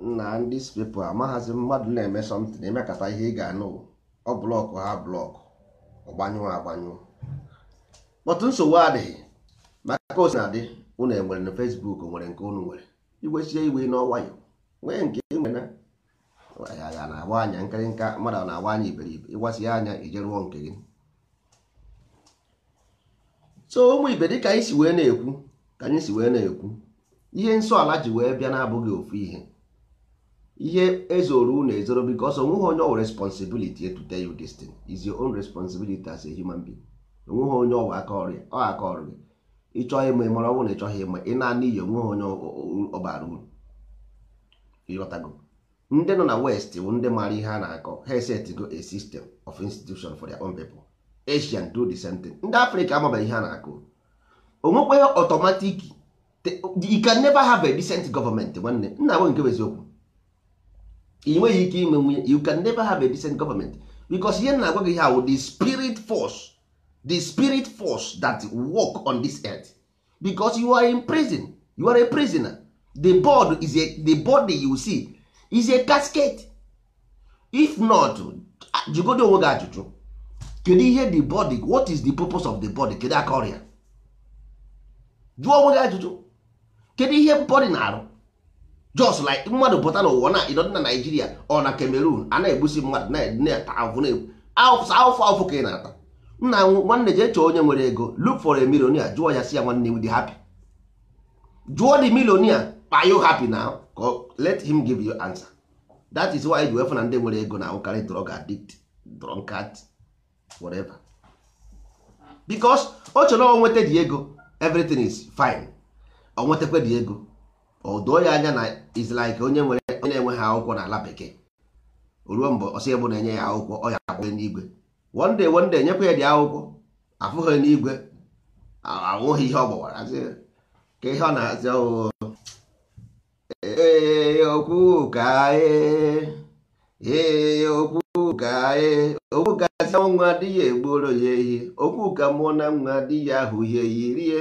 na ndị spepụ amaghazi mmadụ na-eme somtin emekata ihe ị ga-anụ ọ blọkụ ha blọkụ ọgbanyụọ agbanyụọ kpọtụ nsogbu adịghị maka osi na-adị unu enwere na fesbuk nwere nke unu nwere igwesie iwe n'ọnwayọ nwee nke e nwere ya na-agba anya nkịrịnka mmadụ na-agba anya iberibe ịgbasi anya ije rụọ nke gị so ụmụ ibe ka anyị si wee na-ekwu ka anyị si wee na-ekwu ihe nsọ ala ji wee bịa na-abụghị ofu ihe ihe ezoro unu ezoro because onweghị onye ọ responsibility to tell you this is your own responsibility as a human being onweghị onye ọwa aka ọrịa ọ aka ọrịa ịchọghị ịma ịmara ọnwụ na ịchọghị ịma ị na-ana iyi onweghị onye ọbara uru ịghọtago ndị nọ na west bụ ndị maara ihe a na-akọ ha esetgo a system of institution for their own people asian do the same thing ndị afrịka amabaghị ihe a na-akọ onwekweghị otomatik you can never have a decent government nwanne nna bụ nke eziokwu ị nweghị ike ime nwunye you can never have a decent government because ihe na-agwa gị how the spirit force the spirit force that work on this earth because you are in prison you are a prisoner the board is a, the body you see is a casket if not jụgodo onwe gị ajụjụ kedu ihe the body what is the purpose of the body kedu aka ọrịa jụọ onwe gị ajụjụ kedu ihe body na-arụ just like mmadụ pụta n'ụwa na ịdọ na naijiria ọ na cameroon a na-egbusi mmadụ na-ata afụ afụ ka ị na-ata nna nwanne jee chọọ onye nwere ego look for a millionaire jụọ ya si ya nwanne dị happy jụọ the millionaire are you happy now let him give you answer that is why e ji na ndị nwere ego na-ahụkarị drug addict drunkard whatever because o chere onweta di ego everything is fine onwetakwa dị ego o doo ya anya na is like onye nwere onye na-enweghị akwụkwọ n'ala bekee ruo mgbe ọsọ ebu na-enye ya akwụkwọ ọ ya agbae n'igwe wonde wonde nyekwa ya dị akwụkwọ afụghị n'igwe anwụghị ihe ọ gbawara ka ihe ọ na-azị okwu oh, ka ee okwu ka e, ee okwu gazi e, nwa adịghị egboro ya ehi okwu ka mụọ na nwa adịghị ahụ ihe yirie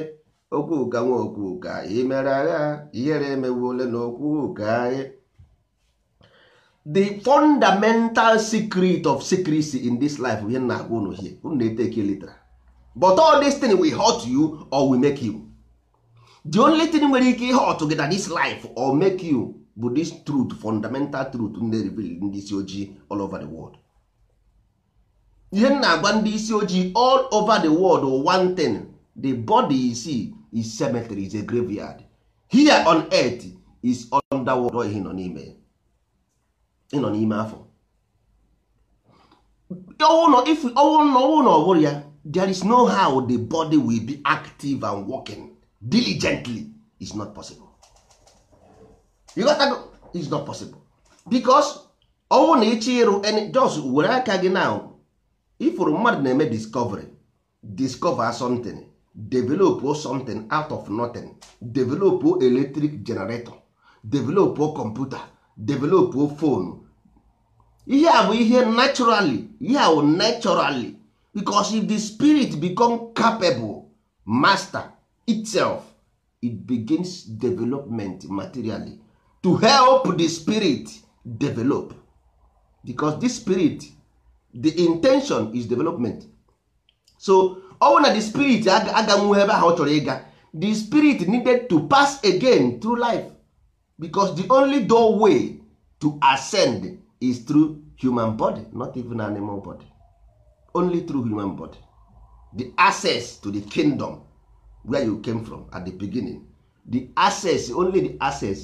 okwu ụga nwa okwu ụga anyị mere agha ihere emewu ole na okwu ụga anyị the fundamental secret of secrecy in this life ihe Nna agwa unu hie unu na-eteki litra but all this thing will hurt you or will make you the only thing nwere ike ihe ọtụ gị na this life or make you bụ this truth fundamental truth na-reveal ndị isi ojii all over the world ihe na-agwa ndị isi ojii all over the world one thing the body is see is cemetery is a graveyard here on earth is underworld ọ ihe nọ n'ime ịnọ n'ime afọ ọwụ na ọ bụrụ ya there is no how the body will be active and working diligently is not possible you got that? is not possible because ọnwụ na ịchọ ịrụ jos were aka gị na ifụrụ mmadụ na-eme discovery discover something develop something out of nothing develop electric generator develop computer develop phone ihe a bụ ihe naturally ihe a bụ naturally because if the spirit become capable master itself it begins development materially to help the spirit develop because this spirit the intention is development so ọ bụ na the spirit aga ebe ahụ ọ chọrọ ịga the spirit needed to pass again through life because the only doorway to ascend is through human body not even animal body only through human body the access to the kingdom where you came from at the beginning the access only the access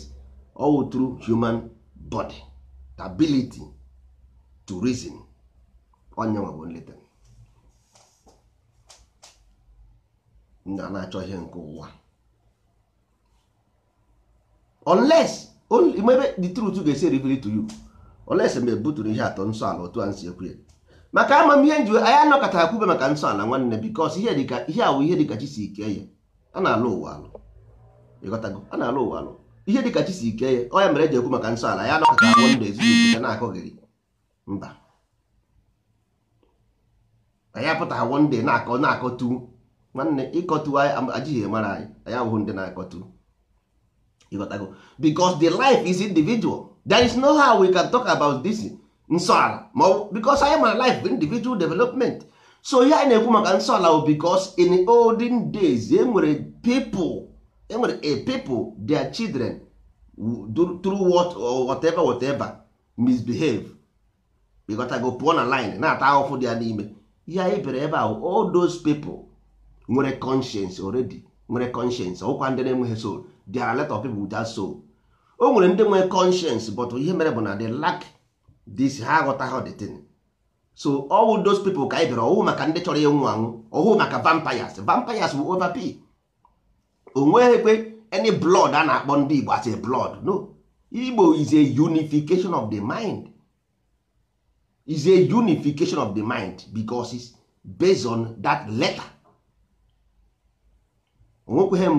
all through human body the ability to reason onye nwe bụ nleta na na-achọ ihe nke ụwa unless maybe the truth ga-esi ribiri to you unless mgbe buturu ihe atọ nsọ ala otu a nsi ekwu maka amamihe nji anyị anọkọta akwube maka nsọ ala nwanne because ihe dịka ihe awụ ihe dịka chi si ike ya a na-alụ ụwa alụ ịghọtago a na-alụ ụwa alụ ihe dịka chi si ike ya ọ mere eji ekwu maka nsọ ala ya anọkọta ezinụlọ na gị mba na-akọ na-akọ tuu nwanne ịkọtụ anyị ajighị mara anyị anyị abụghị ndị na-akọtụ ịghọtago because the life is individual there is no how we can talk about this nsọala ma because anyị mara life individual development so ihe anyị na-ekwu maka nsọala bụ because in olden days enwere people enwere a people their children through what or whatever whatever misbehave ịghọtago pụọ na line na-ata ahụhụ dị ya n'ime ihe anyị bere ebe ahụ all those people nwere conscience already nwere conscience ọkwa ndị na-enweghị soul there are a of people without soul o nwere ndị nwere conscience but ihe mere bụ na the lack this ha aghọtaghị the thing so all those people ka anyị bịara ọwụ maka ndị chọrọ ịnwụ anwụ ọwụ maka vampires vampires bụ overpay o nweghịkwe any blood a na-akpọ ndị Igbo as a blood no Igbo is a unification of the mind is a unification of the mind because based on that letter onwekweghị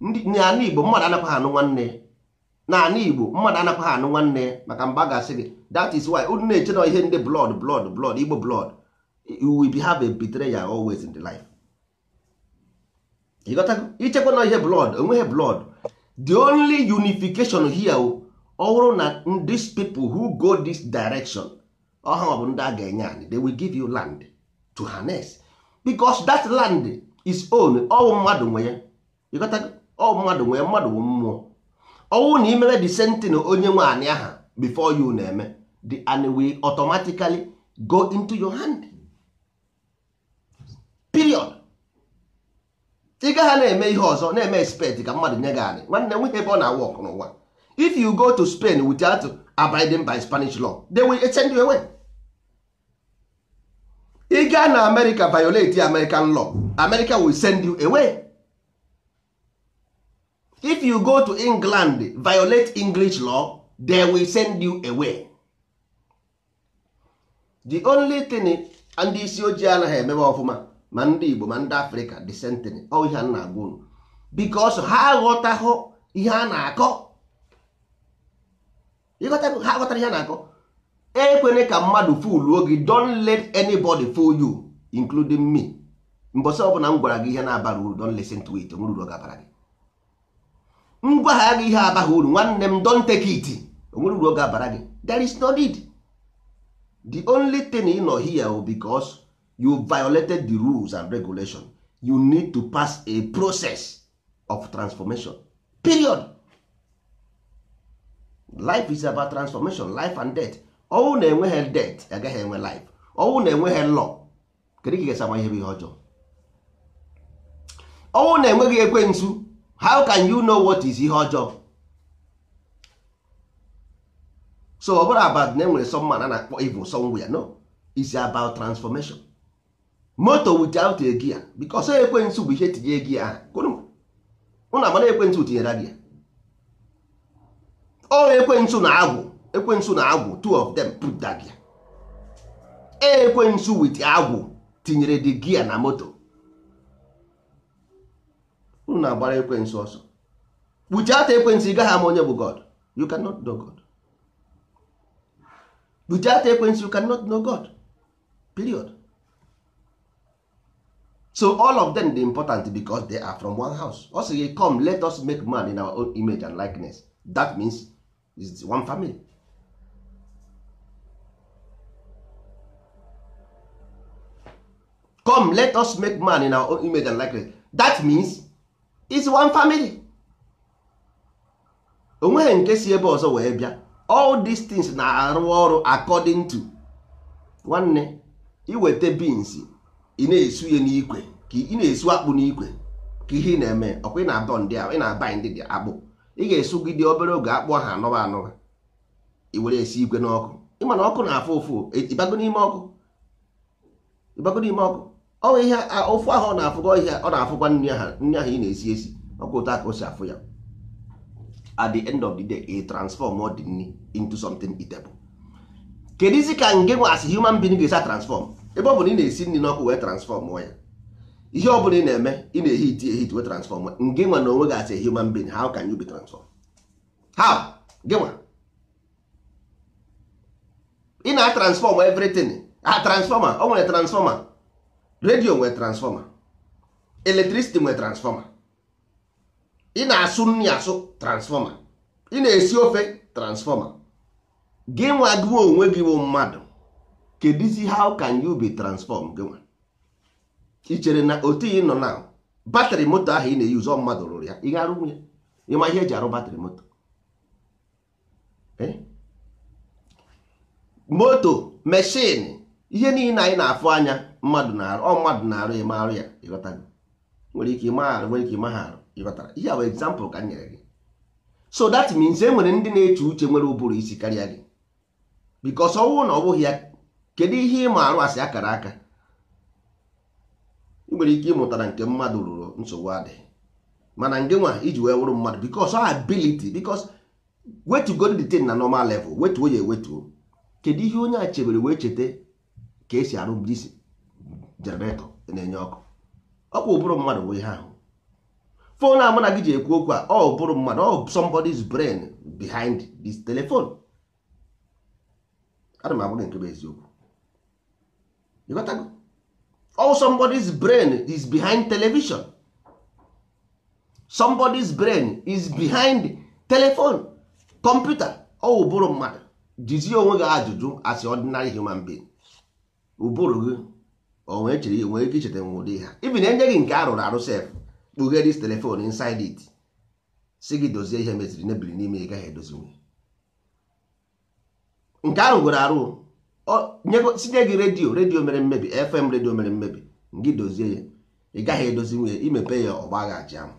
mgbe n'ala Igbo mmadụ anakwaghị anụ nwanne n'ala Igbo mmadụ anakwaghị anụ nwanne maka mba ga-asị gị that is why unu na-eche na ihe ndị blood blood blood Igbo blood we be have a betrayal always in the life ichekwa na ihe blood onweghị blood the only unification here ọhụrụ na these people who go this direction ọha bụ ndị a ga-enye anyị they will give you land to harness because that land is own ọwụ mmadụ nwe ya ịghọtago mmadụ nwee mmadụ bụ mmụọ ọnwụ na imebe the sentin onye nwe anị aha before you na-eme the and we automatically go into your hand period ị gaghị na-eme ihe ọzọ na-eme expect ka mmadụ nye gị anị nwanne nwe ebe ọ na-awụ n'ụwa if you go to Spain without abiding by Spanish law they will send you away ị gaa na America violate American law America will send you away. if you go to england violate english law they will send you away the only thing ndị isi ojii anaghị emebe ọfụma ma ndị igbo ma ndị same thing ọ ihe a na-agwa unu bikos ha aghọtaghụ ihe a na-akọ ha aghọtara ihe a na-akọ ekwene ka mmadụ fuluo oge don let anybody fool you including me mbọsị ọbụla m gwara gị ihe na-abara uru don listen to it nwere uru ọ gị ngwa ha aga ihe abaghị uru nwanne m don take it onwere uru oge abara gị there is no need the only thing ị nọ here bụ oh, because you violated the rules and regulation you need to pass a process of transformation period life is about transformation life and death ọnwụ na-enweghị death agaghị enwe life ọnwụ na-enweghị law kedu ka ị ihe bụ ihe ọjọọ ọnwụ na-enweghị ekwensu how can you know what is ihe ọjọọ so ọ bụrụ about na enwere some man a na-akpọ evil somewhere no is about transformation moto without a gear because ekwentị bụ ihe tinye gia ahụ ụnụ amara ekwentị tinyere gia o ekwentị na agwụ ekwentị na agwụ two of them put that gear ekwentị with agwụ tinyere the gear na moto unu na-agbara ekwensị ọsọ kpuchie ata ekwensị ị gaghị ama onye bụ god you cannot know god kpuchie ata ekwensị you cannot know god period so all of them dey important because they are from one house ọ sị gị come let us make man in our own image and likeness that means is one family come let us make man in our own image and likeness that means is one family onweghị nke si ebe ọzọ wee bịa all these things na-arụ ọrụ according to nwanne iweta beans ị na-esu ya n'ikwe ka ị na-esu akpụ n'ikwe ka ihe ị na-eme ọkwa ị na-adọ ndị ị na-aba ndị dị akpụ ị ga esu gị dị obere oge akpụ ahụ anọba anọba i were esi igwe n'ọkụ ịma na ọkụ na-afụ ụfụ ịbago n'ime ọkụ ịbago n'ime ọkụ ọnwa ihe ofu ahụ ọ na-afụkwa ihe ọ na-afụkwa nri ahụ ị na-esi esi ọkwa ụtọ ka o si afụ ya at the end of the day e transform ọ dị nri into something eatable isi ka nge nwa as human being ga-esi transform ebe ọ bụla ị na-esi nri n'ọkụ wee transform ya ihe ọ bụla ị na-eme ị na-ehi iti ehi wee transform nge nwa na onwe gị as a human being how can you be transform how gị ị na-transform everything a transformer o nwere transformer redio nwere transfọma eletricity nwere transfọma ị na-asụ nri asụ transfọma ị na-esi ofe transfọma gị nwa gị onwe gị bụ mmadụ kedizi how can you be transform gị nwa ị chere na otu ị nọ na batrị moto ahụ ị na ụzọ mmadụ rụrụ ya ị ga-arụ nwunye ịma ihe eji arụ batrị moto eh? moto meshin ihe niile anyị na-afụ anya mmadụ na-arụ ọ mmadụ na-arụ ịma arụ ya ịghọtago nwere ike ịma arụ nwere ike ịma ha arụ ịghọtara ihe bụ egzampụl ka m nyere gị so that means e nwere ndị na-eche uche nwere ụbụrụ isi karịa gị bikos ọnwụ na ọ bụghị ya kedu ihe ịma arụ asị akara aka ị nwere ike ịmụtara nke mmadụ rụrụ nsogbu adịghị mana nge nwa iji wee wụrụ mmadụ bikos ọ ability bikos wetugodo the thing na normal level wetuo ya ewetuo kedu ihe onye a chebere wee cheta ka esi arụ bụrụ isi jeneretọ na-enye ọkụ ọkwa ụbụrụ mmadụ wee ihe ahụ fon a mụ gị ji ekwu okwu a ọ bụrụ mmadụ ọ somebody's brain behind this telephone ana m agwa gị nke bụ eziokwu all somebody's brain is behind television somebody's brain is behind telephone computer ọ ụbụrụ mmadụ jizie onwe gị ajụjụ as ordinary human being ụbụrụ gị onwe nwere chere nwere ike icheta nwe ụdị ha ibi na enye gị nke arụrụ arụ sef kpughe dis telefon inside it si gị dozie ihe meziri mebiri n'ime ị gaghị edozinwe nke arụgoro arụ sinye gị redio redio mere mmebi fm redio mere mmebi gị dozie ya ị gaghị edozinwe imepe ya ọgba ghaji ahụ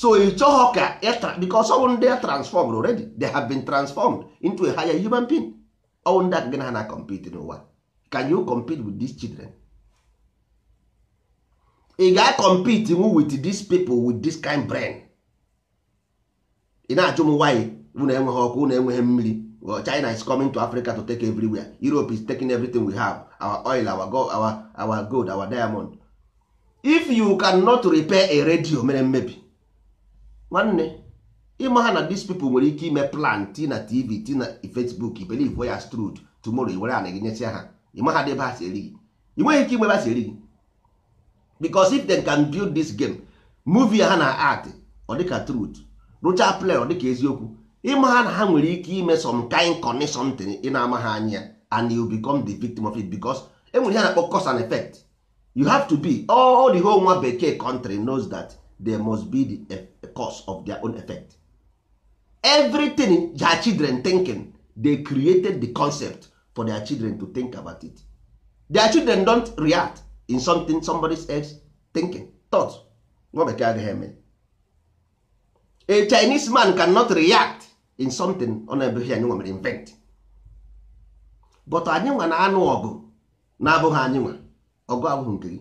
so ị chọghọ ka because ọwụ ndị a transformed already they have been transformed into a higher human being ọwụ ndị aka gị na ha na compete n'ụwa can you compete with these children ị ga-compete with these people with this kind brain ị na-ajụ m why na enweghị ọkụ na enweghị mmiri well, China is coming to Africa to take everywhere Europe is taking everything we have our oil our gold our, our, gold, our diamond if you cannot repair a radio mere mmebi nwanne ịma ha na these people nwere ike ime plan ti na TV ti na Facebook believe we are strud tomorrow i were ana gị nyesịa ha ịmaghadị ebe ha si eri gị ị nweghị ike igbe eri gị because if they can build this game movie ha na art ọ dịka truth lucha play ọ dịka eziokwu ịma ha na ha nwere ike ime some kind connection ị na-ama ha anya and you become the victim of it because enwere ihe na-akpọ cause and effect you have to be all the whole nwa bekee country knows that there must be the eh, cause of their own effect everything their children thinking they created the concept for their children to think about it their children don't react in something somebody else thinking thought nwa bekee agaghị eme a chinese man cannot react in something ọ na-ebeghị anyị nwere invent but anyị nwa na-anụ ọgụ na-abụghị anyị nwa ọgụ abụghị nke gị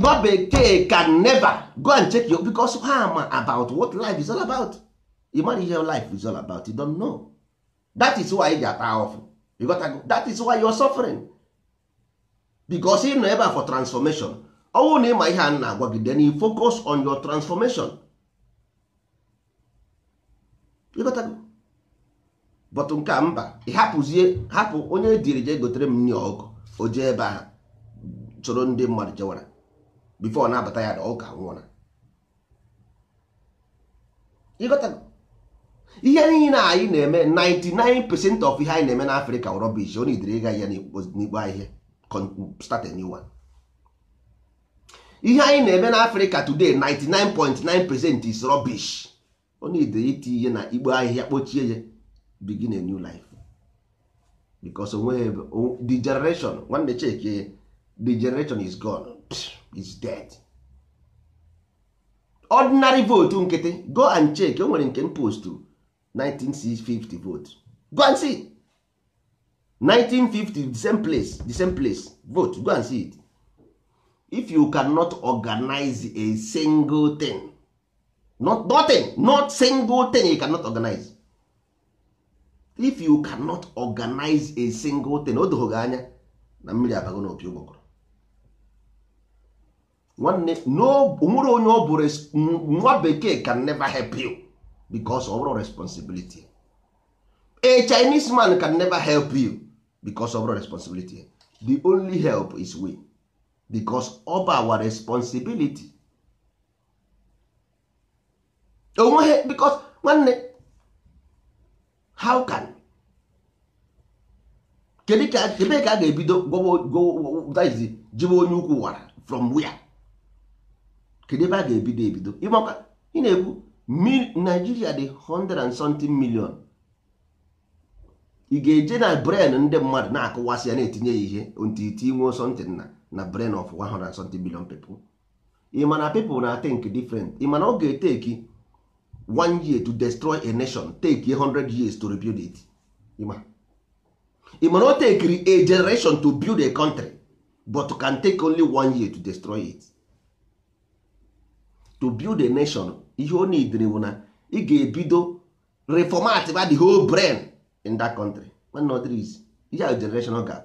nwa bekee can never go and check you because ha ma about what life is all about you mara ihe life is all about you don't know that is why ị ji ata ahụfụ ịghọtago that is why you are suffering bicos ị nọ ebe a for transformation ọnwụ na ịma ihe a na-agwa gị then you focus on your transformation ịghọtago but nke a mba ị hapụzie hapụ onye diri jee gotere m nri ọkụ o jee ebe a soro ndị mmadụ jewara bifo ọ na-abata ya na ọka nwụra ịghọtago ihe niile anyị na-eme 99% of ihe anyị na-eme na afrịka rọbish ọ nidere ịga ya n'igbo ihe start a new one ihe anyị na-eme na afrịka today 99.9% is rubbish ọ nidere iti ihe na igbo ihe kpochie ya begin a new life because the generation nwanne cheke the generation is gone is dead ordinary vote nkịtị go and check o nwere nke m postu 1950 vote go and see it. 1950 the same place the same place vote go and see it if you cannot organize a single thing not nothing not single thing you cannot organize if you cannot organize a single thing o doghị anya na mmiri abago na opi ụgbọgọrọ nwanne onwere onye ọ bụrụ nwa bekee can never help you. because of responsibility a chinese man can never help you because of responsibility the only help is we because of our responsibility onweghị oh, because nwanne how can kedu ka ebe ka a ga-ebido jibe onye ukwu wara from wia kedu ebe a ga-ebido ebido ị na-ekwu Nigeria dị 100 and something million ị ga-eje na brain ndị mmadụ na-akụwasị ya na-etinye ya ihe ntiti nwe something na na brain of 100 and something million people ị ma na people na think different ị ma na ọ ga-eteki one year to destroy a nation take 100 years to rebuild it ị ma na o tekiri a generation to build a country but can take only one year to destroy it to build a nation ihe o nidiri bụ na ị ga-ebido reformat ba the whole brain in that country nwanne ọ dịrị isi ihe a generational gap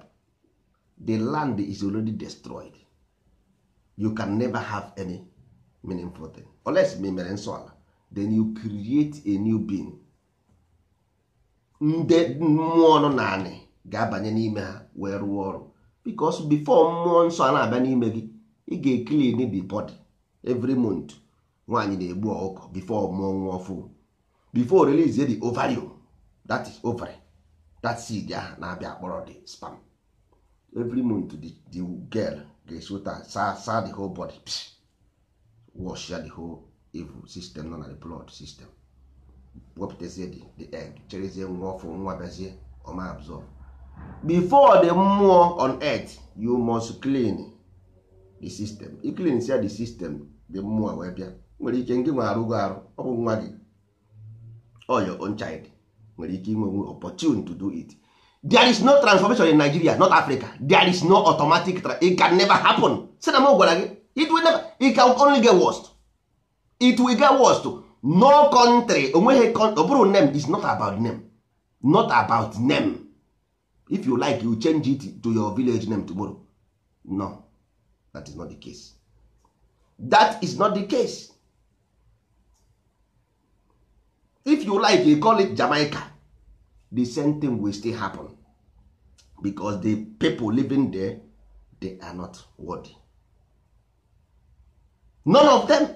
the land is already destroyed you can never have any meaningful thing unless ma mere nsọ ala then you create a new being ndị mmụọ nọ naanị ga-abanye n'ime ha wee rụọ ọrụ because before mmụọ nsọ a na-abịa n'ime gị ị ga-eclean the body every month nwaanyị na-egbu ọkụkọ before mụọ nwa ọfụ before release the ovarium that is ovary that seed ahụ na-abịa akpọrọ the sperm every month the, the girl ga-esota sa saa the whole body wash ya the whole evil system nọ na the blood system wepụtazie the egg cherezie nwa ọfụ nwa bịazie ọma absorb before the mmụọ on earth you must clean the system i clean sia the system the mmụọ wee bịa nwere ike ndị nwe arụgo arụ ọ bụ nwa gị or your own child nwere ike inwe opportunity to do it there is no transformation in Nigeria not Africa there is no automatic it can never happen si na m gwara gị it will never it can only get worst it will get worst no country onweghị ọ bụrụ name is not about name not about name if you like you change it to your village name tomorrow no that is not the case that is not the case if you like you call it jamaica the same thing will still happen because the people living there they are not worthy none of them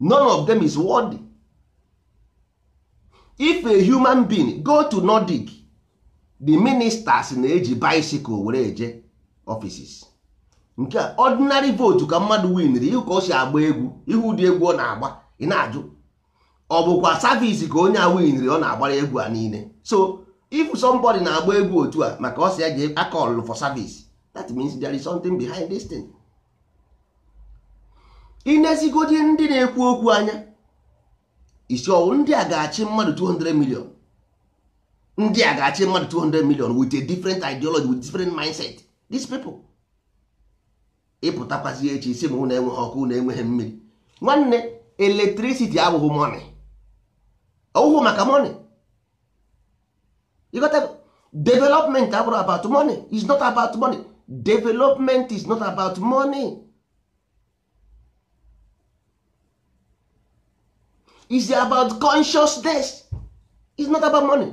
none of them is worthy if a human being go to nordic the ministers na-eji bicycle were eje offices nke ordinary vote ka mmadụ winri ka o si agba egwu ihu ụdị egwu ọ na-agba ị na-ajụ ọ bụkwa savisi ka onye a winri ọ na-agbara egwu a niile so if somebody na-agba egwu otu a maka ọ si ya jee akọlụ for savis that means there is something behind this thing. inezigodi ndị na-ekwu okwu anya isi ọwụ ndị a ga-achị mmadụ 200 million ndị a ga-achị mmadụ 200 million with a different ideology with different mindset this people echi isi m na-enweghị ọkụ na-enweghị mmiri nwanne eletricity abụghị money ọwụhụ maka money you got to, development abụrụ about money is not about money development is not about money is about consciousness is not about money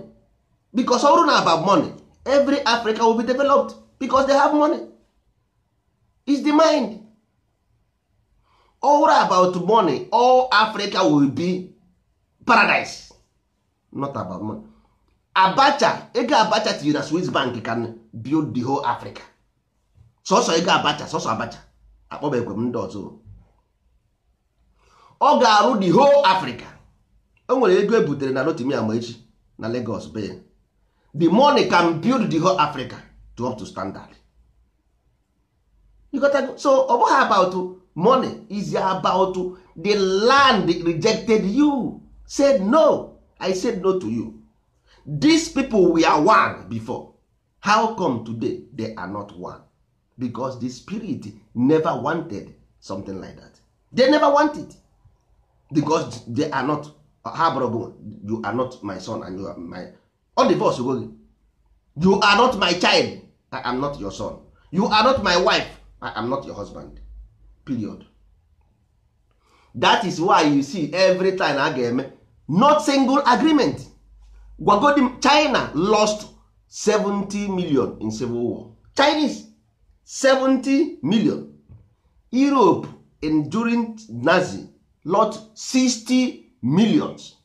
because ọrụ na about money every africa will be developed because they have money is the mind ọrụ about money all africa will be paradise not about money. abacha ego abacha tinyere na swiss bank can build the whole africa sọsọ ego abacha sọsọ abacha akpọba m ndị ọzọ ọ ga-arụ the whole africa o nwere ego ebutere na lotimia ma echi na lagos be the money can build the whole africa to up to standard you got so ọ bụghị about money is about the land rejected you said no i said no to you these people we are one before how come today they are not one because the spirit never wanted something like that they never want it because they are not ha you are not my son and you are my ọ divorce go gị you are not my child i am not your son you are not my wife i am not your husband period that is why you see every time I ga-eme not single agreement gwagodi china lost 70 million in civil war chinese 70 million europe in during nazi lost 60 millions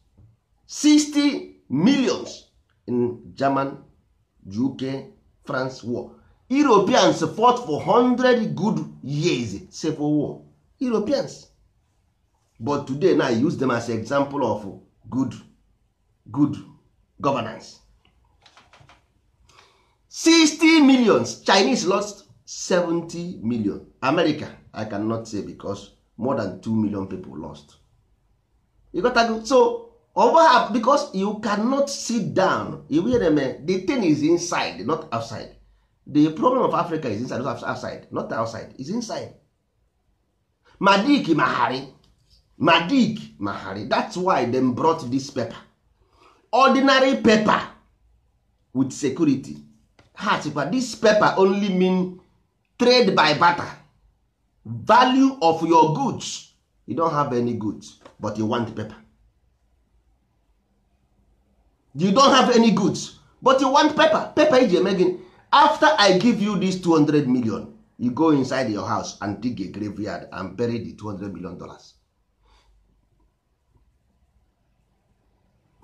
60 millions in german uk france war europeans fought for 100 good years civil war europeans but today now i use them as example of good good governance 60 millions chinese lost 70 million america i cannot say because more than 2 million people lost you got to so over because you cannot sit down you eh? the thing is inside not outside the problem of africa is inside not outside is inside ma dik madik mahari that's why dem brought this paper ordinary paper with security ha sịkwa this paper only mean trade by barter value of your goods you don have any goods but you want paper you don have any goods but you want paper paper iji eme gịnị after i give you this 200 million you go inside your house and dig a graveyard and bury the 200 million dollars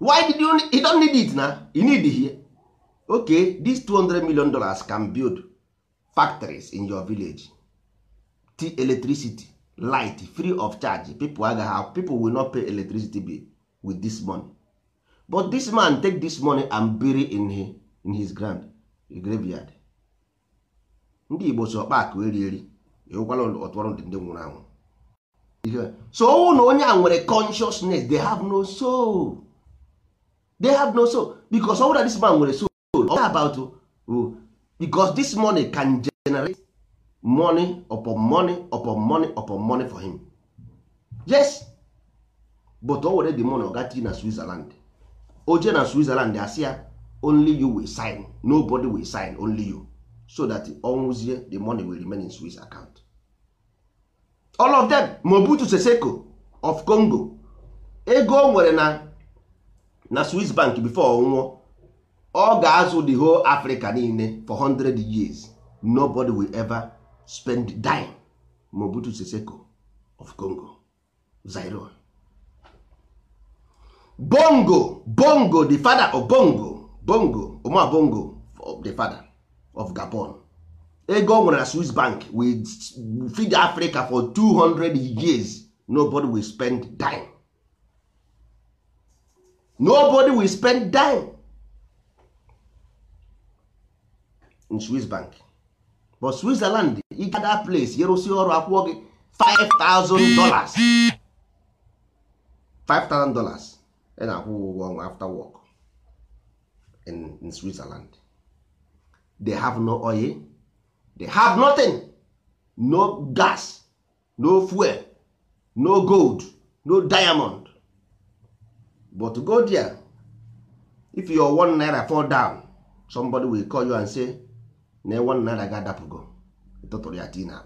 why did you you don't need it na you need here okay these 200 million dollars can build factories in your village t electricity light free of charge people agaghị have people will not pay electricity bill with this money but this man take this money and bury in his, in his ground graveyard ndị Igbo so ọkpa akụ eri eri ewukwala ọtụrụ ndị nwụrụ anwụ so ọnwụ na onye a nwere consciousness they have no soul. they have no soul because that this man nwere soul all about uh, because this money can generate money upon money upon money upon money for him yes but o were the money ọgati na Switzerland oje na Switzerland asị ya only you will sign nobody will sign only you so that ọnwụzie the money will remain in Swiss account all of them Mobutu seseco of Congo ego o nwere na na Swiss bank before nwụọ ọ ga-azụ the whole Africa niile for 100 years nobody will ever spend dime obutu Seseko of Congo Zaire Bongo Bongo the father of Bongo Bongo Omar Bongo the father of Gabon ego ọ nwere na Swiss bank will feed Africa for 200 years nobody will spend dime nobody will spend dime in swiss bank but switzerland ị ga that place yerụsi ọrụ akwụọ gị 5000 dollars 5000 dollars ị na-akwụ ụgwọ ọnwa after work in, in switzerland they have no oil they have nothing no gas no fuel no gold no diamond but go there if your one naira fall down somebody will call you and say na one naira ga adapụgo tụtụrụ ya tii na.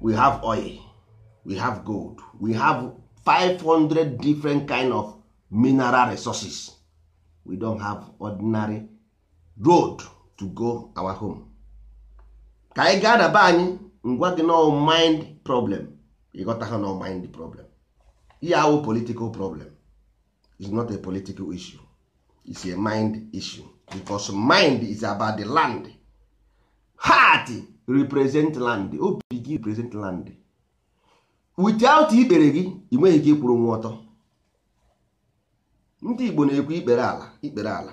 we have oil we have gold we have 500 different kind of mineral resources we don't have ordinary road to go our home ka ị gaa daba anyị ngwa gị no mind problem ịghọta ha no mind problem ihe awụ political problem is not a political issue it's a mind issue because mind is about the land heart represent land obi gị represent land without ikpere gị ị nweghị ike ịkwụrụ nwa ọtọ ndị Igbo na-ekwu ikpere ala ikpere ala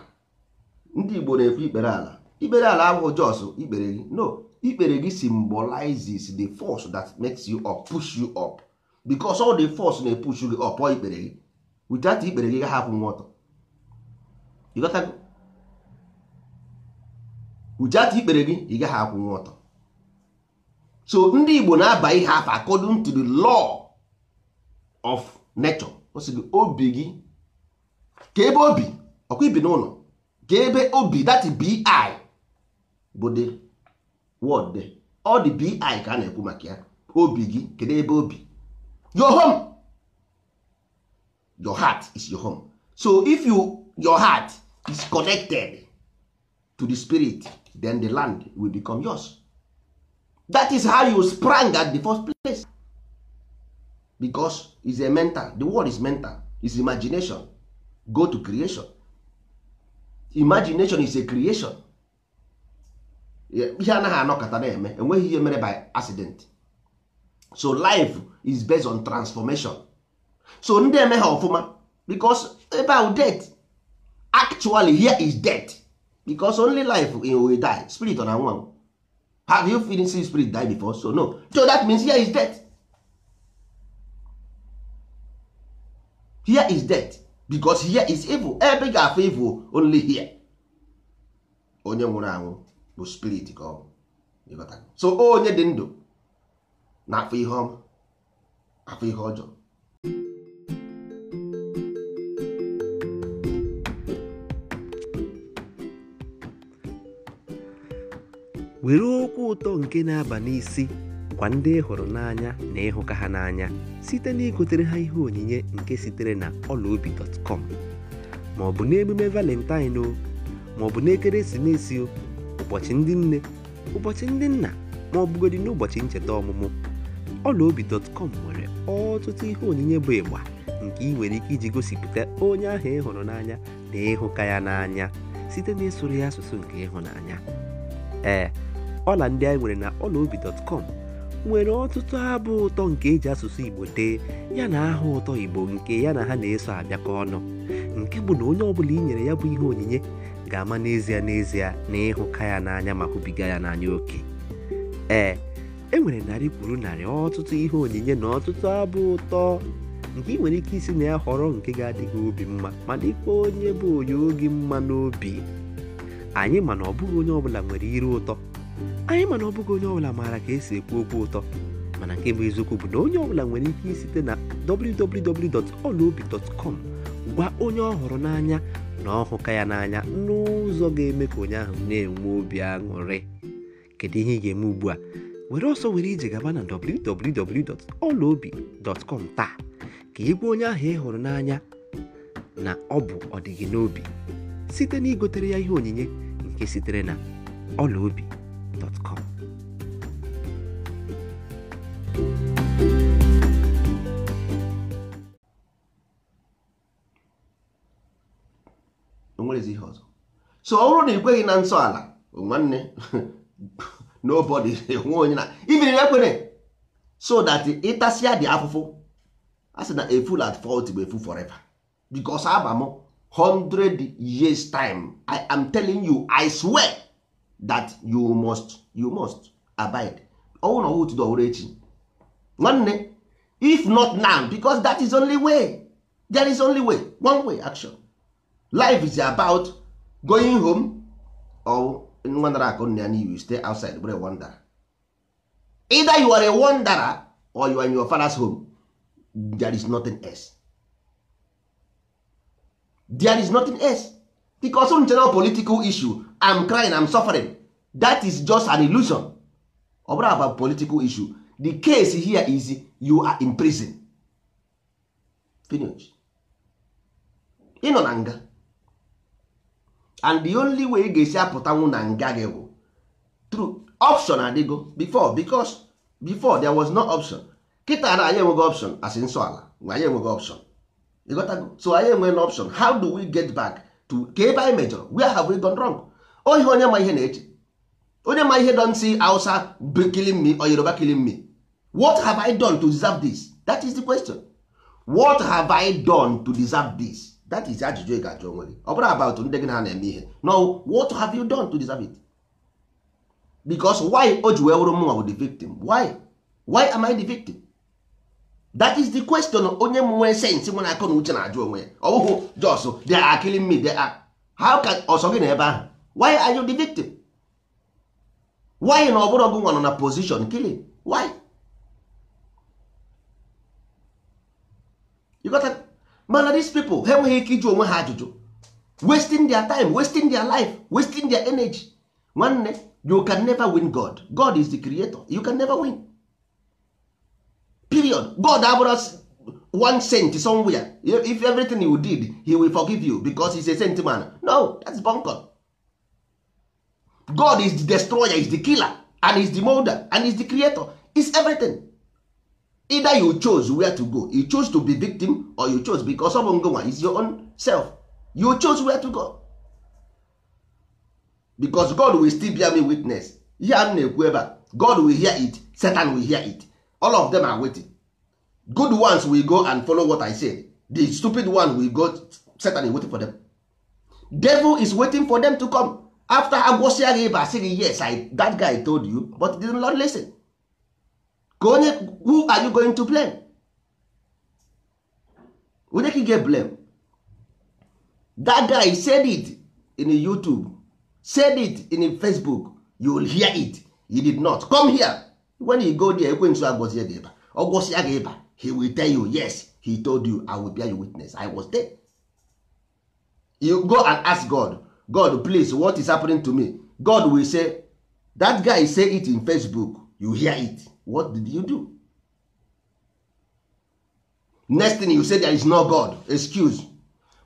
ndị Igbo na-ekwu ikpere ala ikpere ala abụghị jos ikpere gị no ikpere gị symbolizes the force that makes you up push you up bikos ọ dị fọs na-epushu gị ọpọ ikpere gị witat ikpere gị gaghị akwụ nwa ọtọ witat ikpere gị ị gaghị akwụ ọtọ so ndị igbo na-aba ihe afọ according to the law of nature o gị obi gị ka ebe obi ọkwa ibi n'ụlọ ka ebe obi that bi bụ the word ọ dị bi ka a na-ekwu maka ya obi gị kedu ebe obi your home your heart is your home so if you your heart is connected to the spirit then the land will become yours that is how you sprang at the first place because is a mental the world is mental is imagination go to creation imagination is a creation ihe anaghị anọkọta na-eme enweghị ihe mere by accident so life is based on transformation so ndị eme ha ọfụma because ebe death actually here is death because only life will die spirit una na-anwụ have you seen spirit die before so no so that means here is death here is death because here is evil ebe ga evil only here onye nwụrụ anwụ bụ spirit ka ọ so onye dị ndụ na-afụ ihe ọma afụ ihe ọjọọ were okwu ụtọ nke na-aba n'isi kwa ndị ịhụrụ n'anya na ịhụka ha n'anya site na igotere ha ihe onyinye nke sitere na ọlaobi.com ma ọ bụ n'emume valentine o ma ọ bụ n'ekeresimesi ụbọchị ndị nne ụbọchị ndị nna ma ọ bụgodị n'ụbọchị ncheta ọmụmụ ọlaobi.com nwere ọtụtụ ihe onyinye bụ ịgba nke ị nwere ike iji gosipụta onye ahụ ịhụrụ n'anya na ịhụka ya n'anya site na ịsụrụ ya asụsụ nke ịhụnanya ee ọla ndị anyị nwere na ọlaobi.com nwere ọtụtụ abụ ụtọ nke eji asụsụ igbo tee ya na aha ụtọ igbo nke ya na ha na-eso abịakọ ọnụ nke bụ na onye ọbụla inyere ya bụ ihe onyinye ga-ama n'ezie n'ezie na ịhụka ya n'anya ma hụbiga ya n'anya oke ee e nwere narị kwuru narị ọtụtụ ihe onyinye na ọtụtụ abụ ụtọ nke ị nwere ike isi na ya họrọ nke ga-adịghị obi mma ma dịkwa onye bụ onye oge mma n'obi anyị mana ọbụghị onye ọbụla nwere iru ụtọ anyị mana ọbụghị onye ọbụla maara ka esi ekwu okwu ụtọ mana nke bụ eziokwu bụ na onye ọbụla nwere ike isite na www.olaobi.com gwa onye ọ n'anya na ọhụka ya n'anya n'ụzọ ga-eme ka onye ahụ na-enwe obi aṅụrị kedu ihe ị ga-eme ugbu a were ọsọ were ije gaba na www.olaobi.com taa ka gwa onye ahụ ị hụrụ n'anya na ọ bụ ọdịghị n'obi site na igotere ya ihe onyinye nke sitere na olaobi.com o so ọ bụrụ na ị kweghị na nsọ ala nwanne nobody nwe onye na ibiriri ekwere so that ịtasịa dị afụfụ a sị na a fool at fault bụ efu forever because aba m 100 years time i am telling you i swear that you must you must abide ọnwụ na do tudo ọwụrụ echi nwanne if not now because that is only way there is only way one way action life is about going home or nwa nara akụ nna ya n'ihu stay outside bụrụ wonder either you are a wanderer or you are in your father's home there is nothing else there is nothing else because on general political issue am crying am suffering that is just an illusion ọ bụrụ about political issue the case here is you are in prison finish ịnọ na nga and the only way ị ga-esi apụtanwu na nga gị bụ true option adịgo before because before there was no option kịta na anyị enweghị option as nsọ ala anyị enweghị option ịghọtago so anyị enweghị option how do we get back to ka ebe anyị mejọrọ where have we gone wrong ohi onye ma ihe na-eche onye ma ihe don see Hausa killing me or Yoruba killing me what have I done to deserve this that is the question what have I done to deserve this that is ajụjụ ị ga-ajụ onwe gị ọ bụrụ about ndị gị na na-eme ihe no what have you done to deserve it why o ji wee wụrụ mụnwa the victim why why am I the victim that is the question onye nwee akọ na uche na-ajụ onwe ya ọ jos me how can na ebe ahụ why are you the victim why na ọ nwa na position killing mana dis pipo ha enweghị ike onwe ha ajụjụ wasting their time wasting their life wasting their energy nwanne you can never win god god is the creator you can never win period god us one saint somewhere if everything you did he will forgive you because is a saint man no that's bunker god is the destroyer is the killer and is the molder and is the creator is everything either you chose where to go you chose to be victim or you chose because of ngonwa is your own self you chose where to go because god will still bear me witness ihe a na-ekwu ebe a god will hear it satan will hear it all of them are waiting good ones will go and follow what i said the stupid one will go satan is waiting for them devil is waiting for them to come after ha gwụsịa gị yes I, that guy told you but didn't listen ka onye who are you going to blame onye ka ga-blame that guy said it in youtube said it in facebook you will hear it he did not come here when he go there ekwensu agwọzie gị ịba ọ gị ịba he will tell you yes he told you i will bear you witness i was there you go and ask god god please what is happening to me god will say that guy say it in facebook you hear it what did you do next thing you say there is no god excuse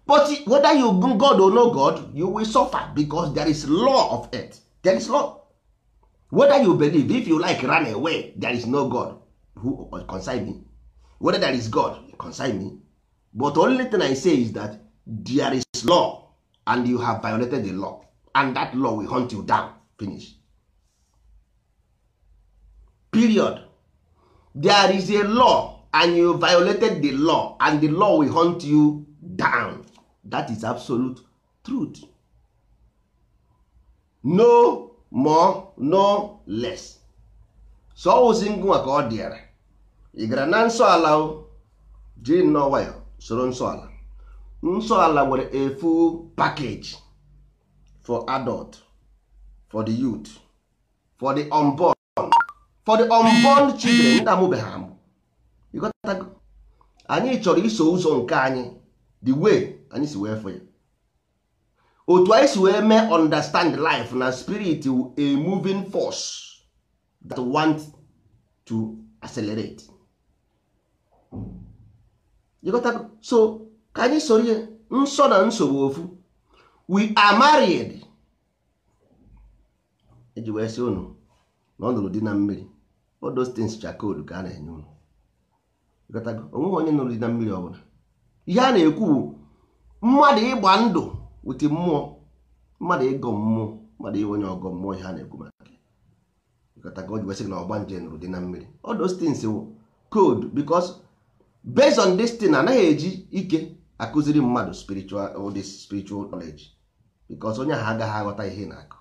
but whether you god or no god you will suffer because there is law of earth. there is law whether you believe if you like run away there is no god who uh, consign me whether there is god consign me but only thing i say is that there is law and you have violated the law and that law will hunt you down finish period there is a law and you violated the law and the law will hunt you down that is absolute truth no more no less so ọwụzi ngụnwa ka ọ dịara ị gara na nsọ ala jiri nnọọ nwayọ soro nsọ ala nsọ ala nwere a full package for adult for the youth for the unborn for the unborn children ndị amụbeghị amụ anyị chọrọ iso ụzọ nke anyị the way anyị si wee fụ ya otu anyị si wee mee understand life na spirit a moving force that want to accelerate ịghọtago so ka anyị soro ihe nsọ na nsogbu ofu we are married eji wee sị unu na ọ nụrụ di na mmiri all those cha koodu ka a na-enye unu onweghị onye nụrụ dị na mmiri ọbụla ihe a na-ekwu bụ mmadụ ịgba ndụ wute mmụọ mmadụ ịgọ mmụọ mmadụ inwe onye ọgọ mmụọ ihe a na-ekwu maka na ọgba nje nụrụ dị na mmiri all those wụ koodu because based on this thing anaghị eji ike akụziri mmadụ spiritual this spiritual knowledge because onye ahụ agaghị aghọta ihe na-akọ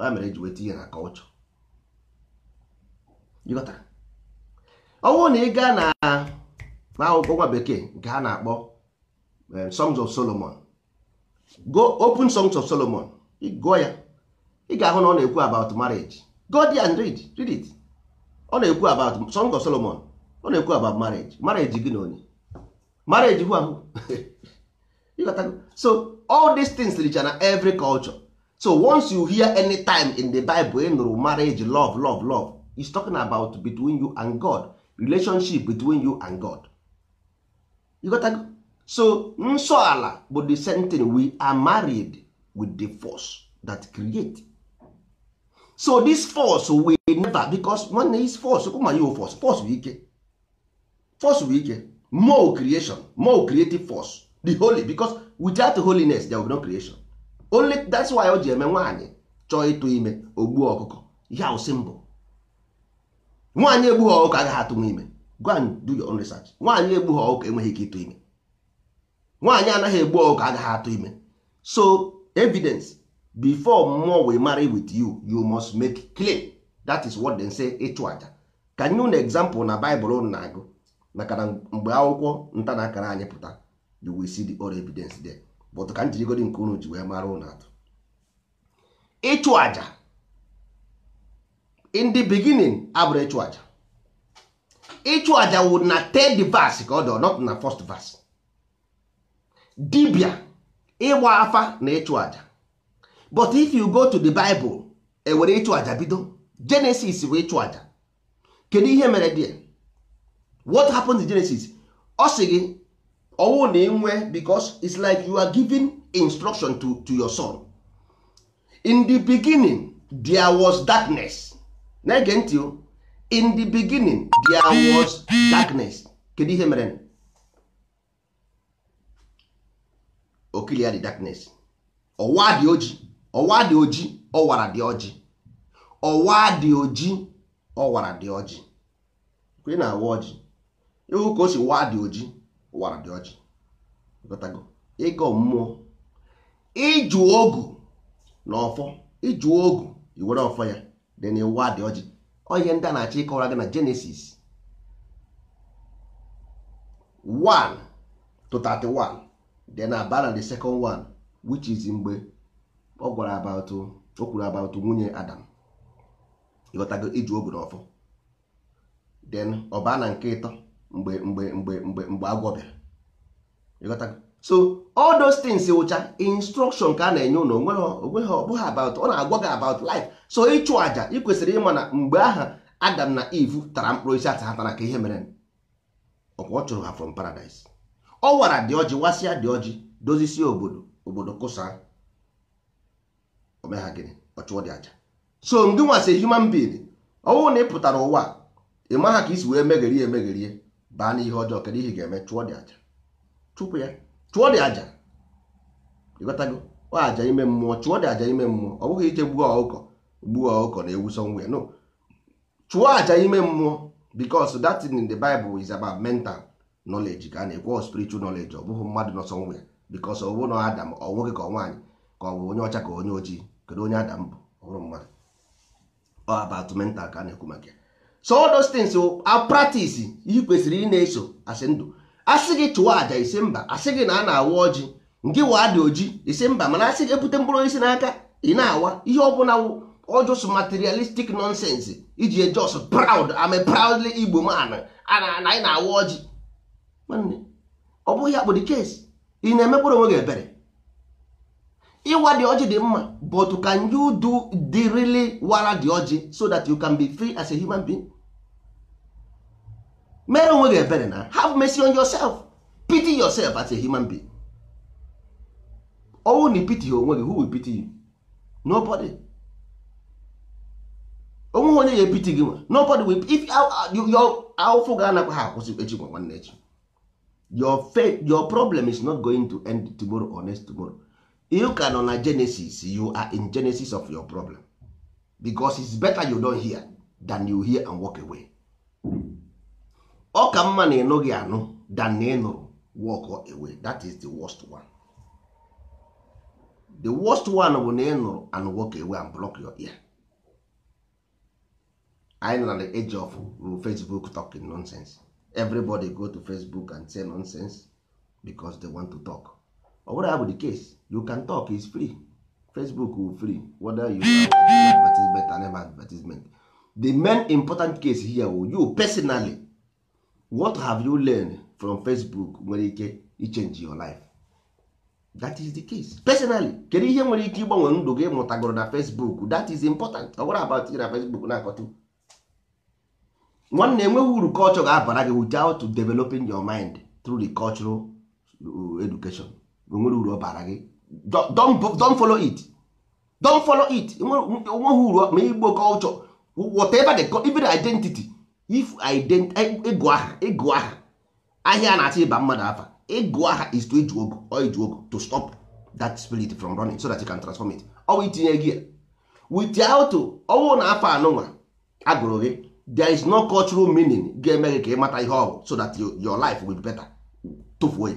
ya mere eji weta ihe na culture ọnwụ na ị gaa na akwụkwọ nwa bekee nke ha na-akpọ eh, songs of solomon go open songs of solomon gụọ ya ị ga-ahụ na ọ na-ekwu about marriage go there and read read it ọ na-ekwu about songs of solomon ọ na-ekwu about marriage marriage gị na onye marriage hụ ahụ so all these things richa na every culture so once you hear any time in the bible ị nụrụ marriage love love love is talking about between you and god relationship between you and god you got to... so nsọ ala bụ the same thing we are married with the force that create so this force we never because one is force ụma force force bụ ike force bụ ike more creation more creative force the holy because without holiness there will be no creation only that's why o ji eme nwaanyị chọọ ịtụ ime ogbuo ọkụkọ ya ụsị mbụ nwaanyị egbughị ọkụkọ agaghị atụ ime go and do your own research nwaanyị egbughị ọkụkọ enweghị ike ịtụ ime nwaanyị anaghị egbu ọkụkọ agaghị atụ ime so evidence before mmụọ we marry with you you must make clear that is what they say ịchụ aja ka nye unu example na Bible unu na-agụ maka na mgbe akwụkwọ nta na akara anyị pụta you will see the all evidence there but ka njirigodi nke unu ji wee mara unu atụ ịchụ aja in the beginning abụrụ ịchụ aja ịchụ aja wụ na third verse ka ọ dị not na first verse dibia ịgba afa na ịchụ aja but if you go to the Bible ewere ịchụ aja bido Genesis bụ ịchụ aja kedu ihe mere dị what happens in Genesis ọ sị gị ọwụ na enwe because it's like you are giving instruction to, to your son in the beginning there was darkness na-ege ntị o in the beginning there was darkness kedu ihe mere okilia dị darkness ọwa dị oji ọwa dị oji ọwara dị ọjị ọwa dị oji ọwara dị ọjị kwe na awa ọjị ịhụ ka o si wa dị oji ọwara dị ọjị ịga mmụọ ịjụ ogu na ọfọ ịjụ ogu iwere ọfọ ya then ụwa dị ọjị onye ndị a na-achọ ịkọwara gị na Genesis 1 to 31 then abara the second one which is mgbe ọ gwara about o kwuru about nwunye Adam ịghọtago iji obi n'ọfọ then ọba na nke ịtọ mgbe mgbe mgbe mgbe mgbe agwọ bịara ịghọtago so all those things wụcha instruction ka a na-enye ụlọ onweghị ọbụghị about ọ na-agwa gị about life so ịchụ aja ị kwesịrị ịma na mgbe aha Adam na Eve tara mkpụrụ isi ata hatara ka ihe mere ọkwa ọ chụrụ ha from paradise ọ wara dị ọjị wasịa dị ọjị dozisi obodo obodo kụsa omegha gịnị ọ chụọ dị aja so ndị nwasị human being ọnwụ na ị pụtara ụwa ị ha ka isi wee megherie emegherie baa n'ihe ọjọọ kedu ihe ga-eme chụọ dị aja chụpụ ya chụọ dị aja ịghọtago ọ aja ime mmụọ chụọ dị aja ime mmụọ ọ bụghị ije gbuo ọkụkọ gbuo ọkụkọ na ewu somewhere no chụọ aja ime mmụọ because that in the Bible is about mental knowledge ka a na-ekwu spiritual knowledge ọ bụghị mmadụ nọ somewhere because ọ bụrụ na Adam ọ nwoke ka ọ nwaanyị ka ọ bụ onye ọcha ka onye ojii kedu onye Adam bụ ọ bụrụ mmadụ ọ about mental ka a na-ekwu maka ya so all those things a practice ihe kwesịrị ị na-eso asị ndụ asị gị chụọ àjà isi mba asị gị na a na-awa ọjị nke waa dị oji isi mba mana asị gị ebute mkpụrụ osisi n'aka ị na-awa ihe ọbụla wụ ọjọs materialistic nonsense iji ejọs proud ame proudly igbo man na anyị na-awa ọjị nwanne ọ bụghị akpụ dị ị na-emekpụrụ onwe gị ebere ịwa dị ọjị dị mma but can you do the wara dị ọjị so that you can be free as a human being mere onwe gị ebere na have mercy on yourself pity yourself as a human being ọnwụ na pity ha onwe gị who will pity you nobody onwe onye ya epiti gị nwa nobody will if awụfụ ga-anakwa ha akwụsị echi nwa nwanne echi your faith your problem is not going to end tomorrow or next tomorrow you can nọ na genesis you are in genesis of your problem because it's better you don't hear than you hear and walk away. ọ ka mma na gị anụ dan na ịnụrụ walk away that is the worst one the worst one bụ na ịnụrụ and walk away and block your ear anyị nọ na the age of Facebook talking nonsense everybody go to Facebook and say nonsense because they want to talk ọ bụrụ ya bụ the case you can talk is free Facebook will free whether you advertisement and advertisement the main important case here will you personally what have you learned from facebook nwere ike change your life that is the case personally kedu ihe nwere ike ịgbanwe ndụ gị mụtagoro na facebook that is important ọ gwara about na facebook na-akọtụ nwanne enweghị uru culture ga-abara gị without developing your mind through the cultural uh, education enwere uru ọ bara gị don't follow it don't follow it enweghị uru ma igbo culture whatever the even identity if ịgụ aha ịgụ aha ahịa a na-achọ ịba mmadụ afa ịgụ aha is to iju ogu or iju ogu to stop that spirit from running so that you can transform it ọ bụ itinye gia auto ọwụ na afọ anụnwa agụrụ gị there is no cultural meaning ga-eme gị ka ị mata ihe ọgwụ so that your life will be better tụfuo ya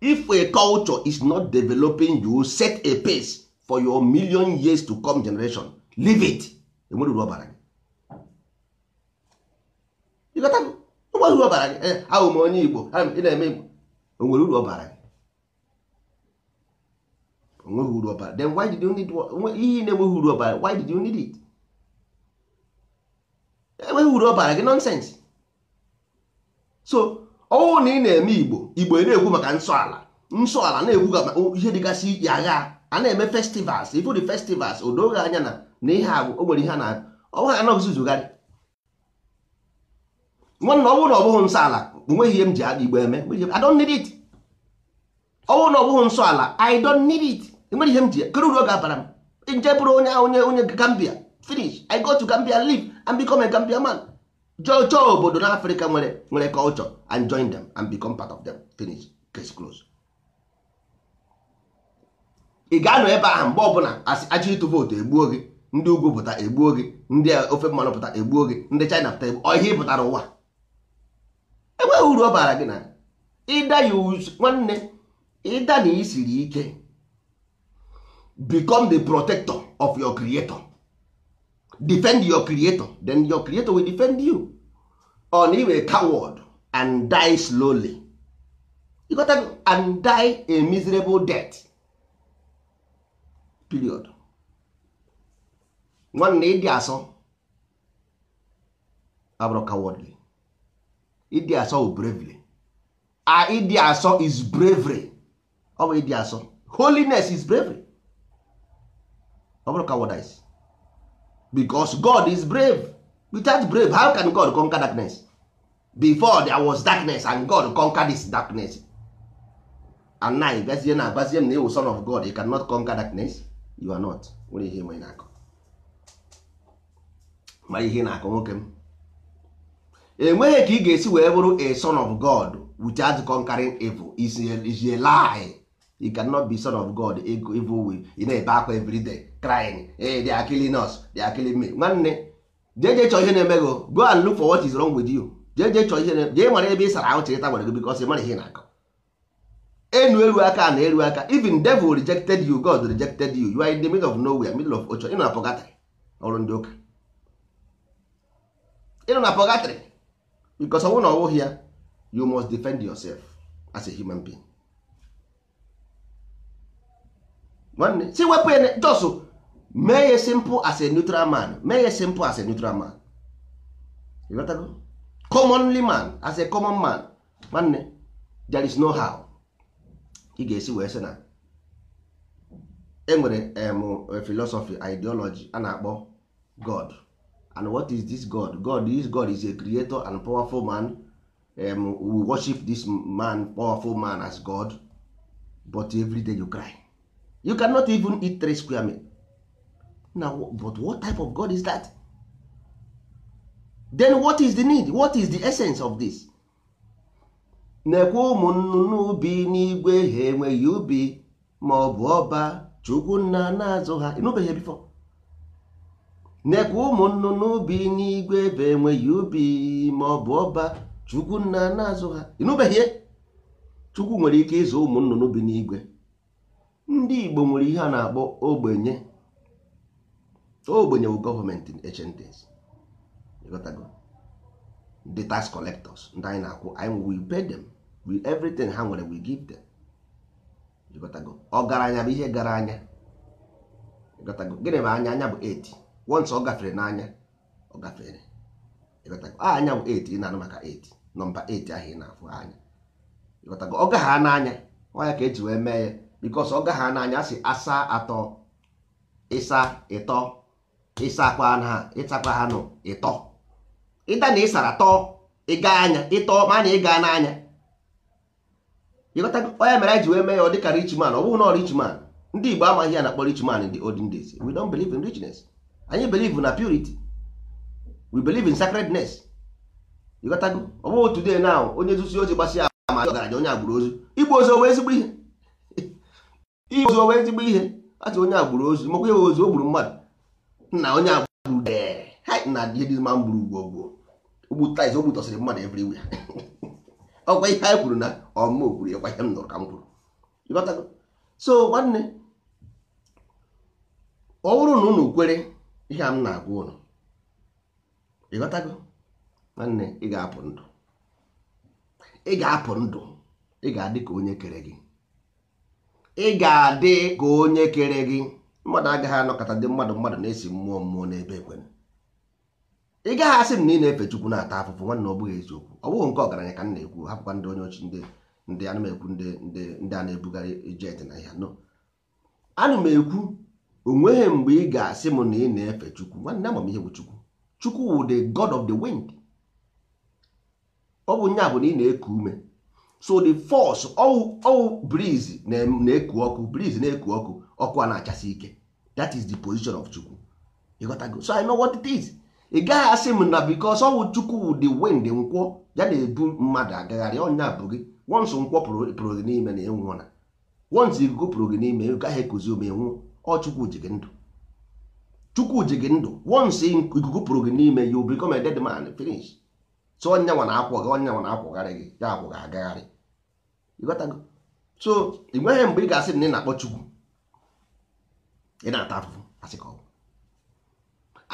if a culture is not developing you set a pace for your million years to come generation leave it enwere uru ọbara gị uru ọbara gị ahụ m onye igbo ị na-eme igbo O nwere uru ọbara gị onweghị uru ọbara then why did you need ihe na-enweghị uru ọbara why did you need it enweghị uru ọbara gị nonsense so ọnwụ na ị na-eme igbo igbo na-ekwu maka nsọ ala nsọ ala na-ekwu ihe dịgasị iche agha a na-eme festivals ifu dị festivals odoghị anya na na ihe agwụ o nwere ihe a na-agụ ọnwa ha anaghịzi zugharị nwanne ọ bụrụ na ọ bụghị nsọ ala onweghị ihe m ji adị igbo eme I don't ọ bụrụ na ọ bụghị nsọ ala I don't need it enwere ihe m ji kere uru ọ ga-abara m nje bụrụ onye onye onye Gambia finish I go to Gambia live and become a Gambia man jọọ chọọ obodo na Afrịka nwere nwere culture and join them and become part of them finish case close ị ga-anọ ebe ahụ mgbe ọbụla aja ịtụ vootu egbuo gị ndị ugwu pụta egbuo gị ndị ofe mmanụ pụta egbuo gị ndị China pụta egbuo ihe pụtara ụwa enweghị uru ọ bara gị na ịda ya nwanne ịda na isiri ike become the protector of your creator defend your creator then your creator will defend you on iwe coward and die slowly you got to, and die a miserable death period nwanne ịdị asọ abụrụ cowardly ịdị asọ wụ bravery a ịdị asọ is bravery ọ bụ ịdị asọ holiness is bravery ọ bụrụ cowardice because God is brave without brave how can God conquer darkness before there was darkness and God conquer this darkness and now gazie na agbazie na ewu son of God you cannot conquer darkness you are not nwere ihe na ihe na-akọ nwoke m enweghị ka ị ga-esi wee bụrụ a son of god without conquering evil is a, is a lie you cannot be son of god evil will You na-ebe akwa everyday crying hey, they are killing us they are killing me nwanne jeje jee chọọ ihe na-eme gị go and look for what is wrong with you jee jee chọọ ihe jee mara ebe ị sara ahụ chịrịta gwara gị bikos ị mara ihe na-akọ enu eru aka na eru aka even devil rejected you god rejected you you are in the middle of nowhere middle of ocho ị na pọgatrị ọrụ ndị ụka ị na pọgatrị because ọnwụ na ọwụghị ya you must defend yourself as a human being nwanne si wepụ ya jos mee ya simple as a neutral man mee ya simple as a neutral man commonly man as a common man nwanne there is no how ị ga-esi wee sị na enwere em e philosophy ideology a na-akpọ god and what is this god god this god is a creator and powerful man um, we worship this man powerful man as god but every day you cry you cannot even eat three square meal now but what type of god is that then what is the need what is the essence of this na-ekwe ụmụ ubi n'igwe ha enweghị ubi ma ọ bụ ọba chukwu nna na-azụ ha ịnụbeghị nekwa ụmụ nnụnụ ubi n'igwe ebe enweghị ubi ma ọ bụ ọba chukwu nna na-azụ ha ịnụbeghị chukwu nwere ike ịzụ ụmụ nnụnụ bi n'igwe ndị igbo nwere ihe a na-akpọ ogbenye ogbenye bụ gọọmenti echendes the tax collectors ndị anyị na-akwụ anyị we pay them we everything ha nwere we give them ọgaranya bụ ihe gara anya gịnị bụ anya anya bụ 8 once ọ gafere n'anya ọ gafere anya bụ 8 ị na-anụ maka 8 nọmba 8 ahụ na-afụ anya ọ gagha n'anya ka eji wee mee ya bikos ọ gagha n'anya asị asa atọ ịsa ịtọ ịsakwa ha ịsakwa ha nụ ịtọ ịda na ịsara tọọ ịga anya ịtọ ma na ịga n'anya mere eji wee mee ya ọ dịka richman ọ bụghị na ọ richman ndị Igbo amaghị ya na kpọrọ richman in the olden anyị believe na purity we believe in sacredness ịghọtago ọ bụghị today now onye zusi ozi gbasịa ama ọgaranya onye agbụrụ ozu igbu ozu owe ezigbo ihe igbu ozu owe ezigbo ihe atụ onye agbụrụ ozu makwa ya ozu o gburu mmadụ na onye agbụrụ dee na ihe dị mma gburu ugwo ogwo ogbutais ogbutọsịrị mmadụ everywhere ọkwa ihe anyị kwuru na ọmụma okwuru ya kwa ihe m nụrụ ka m kwuru ịghọtago so nwanne ọ bụrụ na unu kwere ihe a m na-agwa ụnụ ịghọtago nwanne ị ga-apụ ndụ ị ga-apụ ndụ ị ga-adị ka onye kere gị ị ga-adị ka onye kere gị mmadụ agaghị anọkọta ndị mmadụ mmadụ na-esi mmụọ mmụọ n'ebe ekwere ị gaghị asị m na ị na-efe chukwu na-ata afụfụ nwanne ọ bụghị eziokwu ọ bụghị nke ọgaranya ka m na-ekwu hapụkwa ndị onye ochi ndị ndị anụ ndị ndị a na-ebugharị jet na ya no anụ m ekwu onweghị mgbe ị ga-asị m na ị na-efe chukwu nwanne ihe bụ chukwu chukwu wụ the god of the wind ọ bụ nya bụ na ị na-eku ume so the force ọwụ breeze na-eku ọkụ breeze na-eku ọkụ ọkụ a na-achasi ike that is the position of chukwu ịghọtago so I know what it is ị gaghị asị m na because ọwụ chukwu wụ the wind nkwọ ya na-ebu mmadụ agagharị ọnya bụ gị once nkwọ pụrụ gị n'ime na ịnwụọ na once ikuku pụrụ gị n'ime ị gaghị ekuzi ome nwụọ ọ chukwu ji gị ndụ chukwu ji gị ndụ once ikuku pụrụ gị n'ime you become a dead man finish so onye onyenwa na-akwọ gị onye onyenwa na-akwọgharị gị ya akwọ gị agagharị ịghọtago so ị nweghị mgbe ị ga-asị na ị na-akpọ chukwu ị na-ata afụfụ asị ka ọ bụ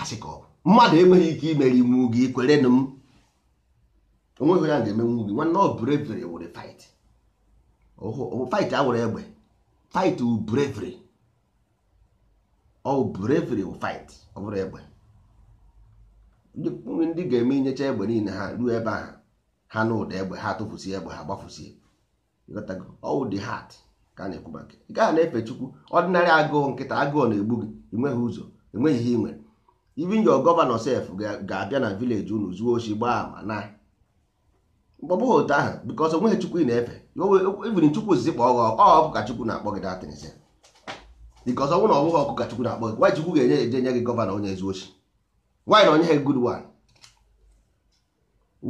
asị ka ọ bụ mmadụ enweghị ike imere iwu gị kwere nụ m onweghị ya ga-emenwu gị nwanne ọ breviri were fight fight a were egbe fight wu ọ bravery fight ọ bụrụ egbe ndị ga-eme inyecha egbe niile ha ruo ebe ahụ ha na ụda egbe ha tụfusie egbe ha gbafusie ọwụ dị hat ka a na-ekwu maka ị gaghị na-efe chukwu ọdịnarị agụụ nkịta agụụ na-egbu gị enweghị ụzọ enweghị ihe i nwere even your gọvanọ sef ga-abịa na vileji unu zuo oshi gbaa ma na mkpọbụghị otu ahụ bikọs onweghị chukwu ị na-efe even chukwu ozizi kpọọ gị ọ bụ ka chukwu na-akpọ gị datịnsị because ọ bụrụ na ọ bụghị ọkụ ka Chukwu na-akpọ gị nwaanyị Chukwu ga-enye eje nye gị gọvanọ onye ezi ochi nwaanyị na onye ha good one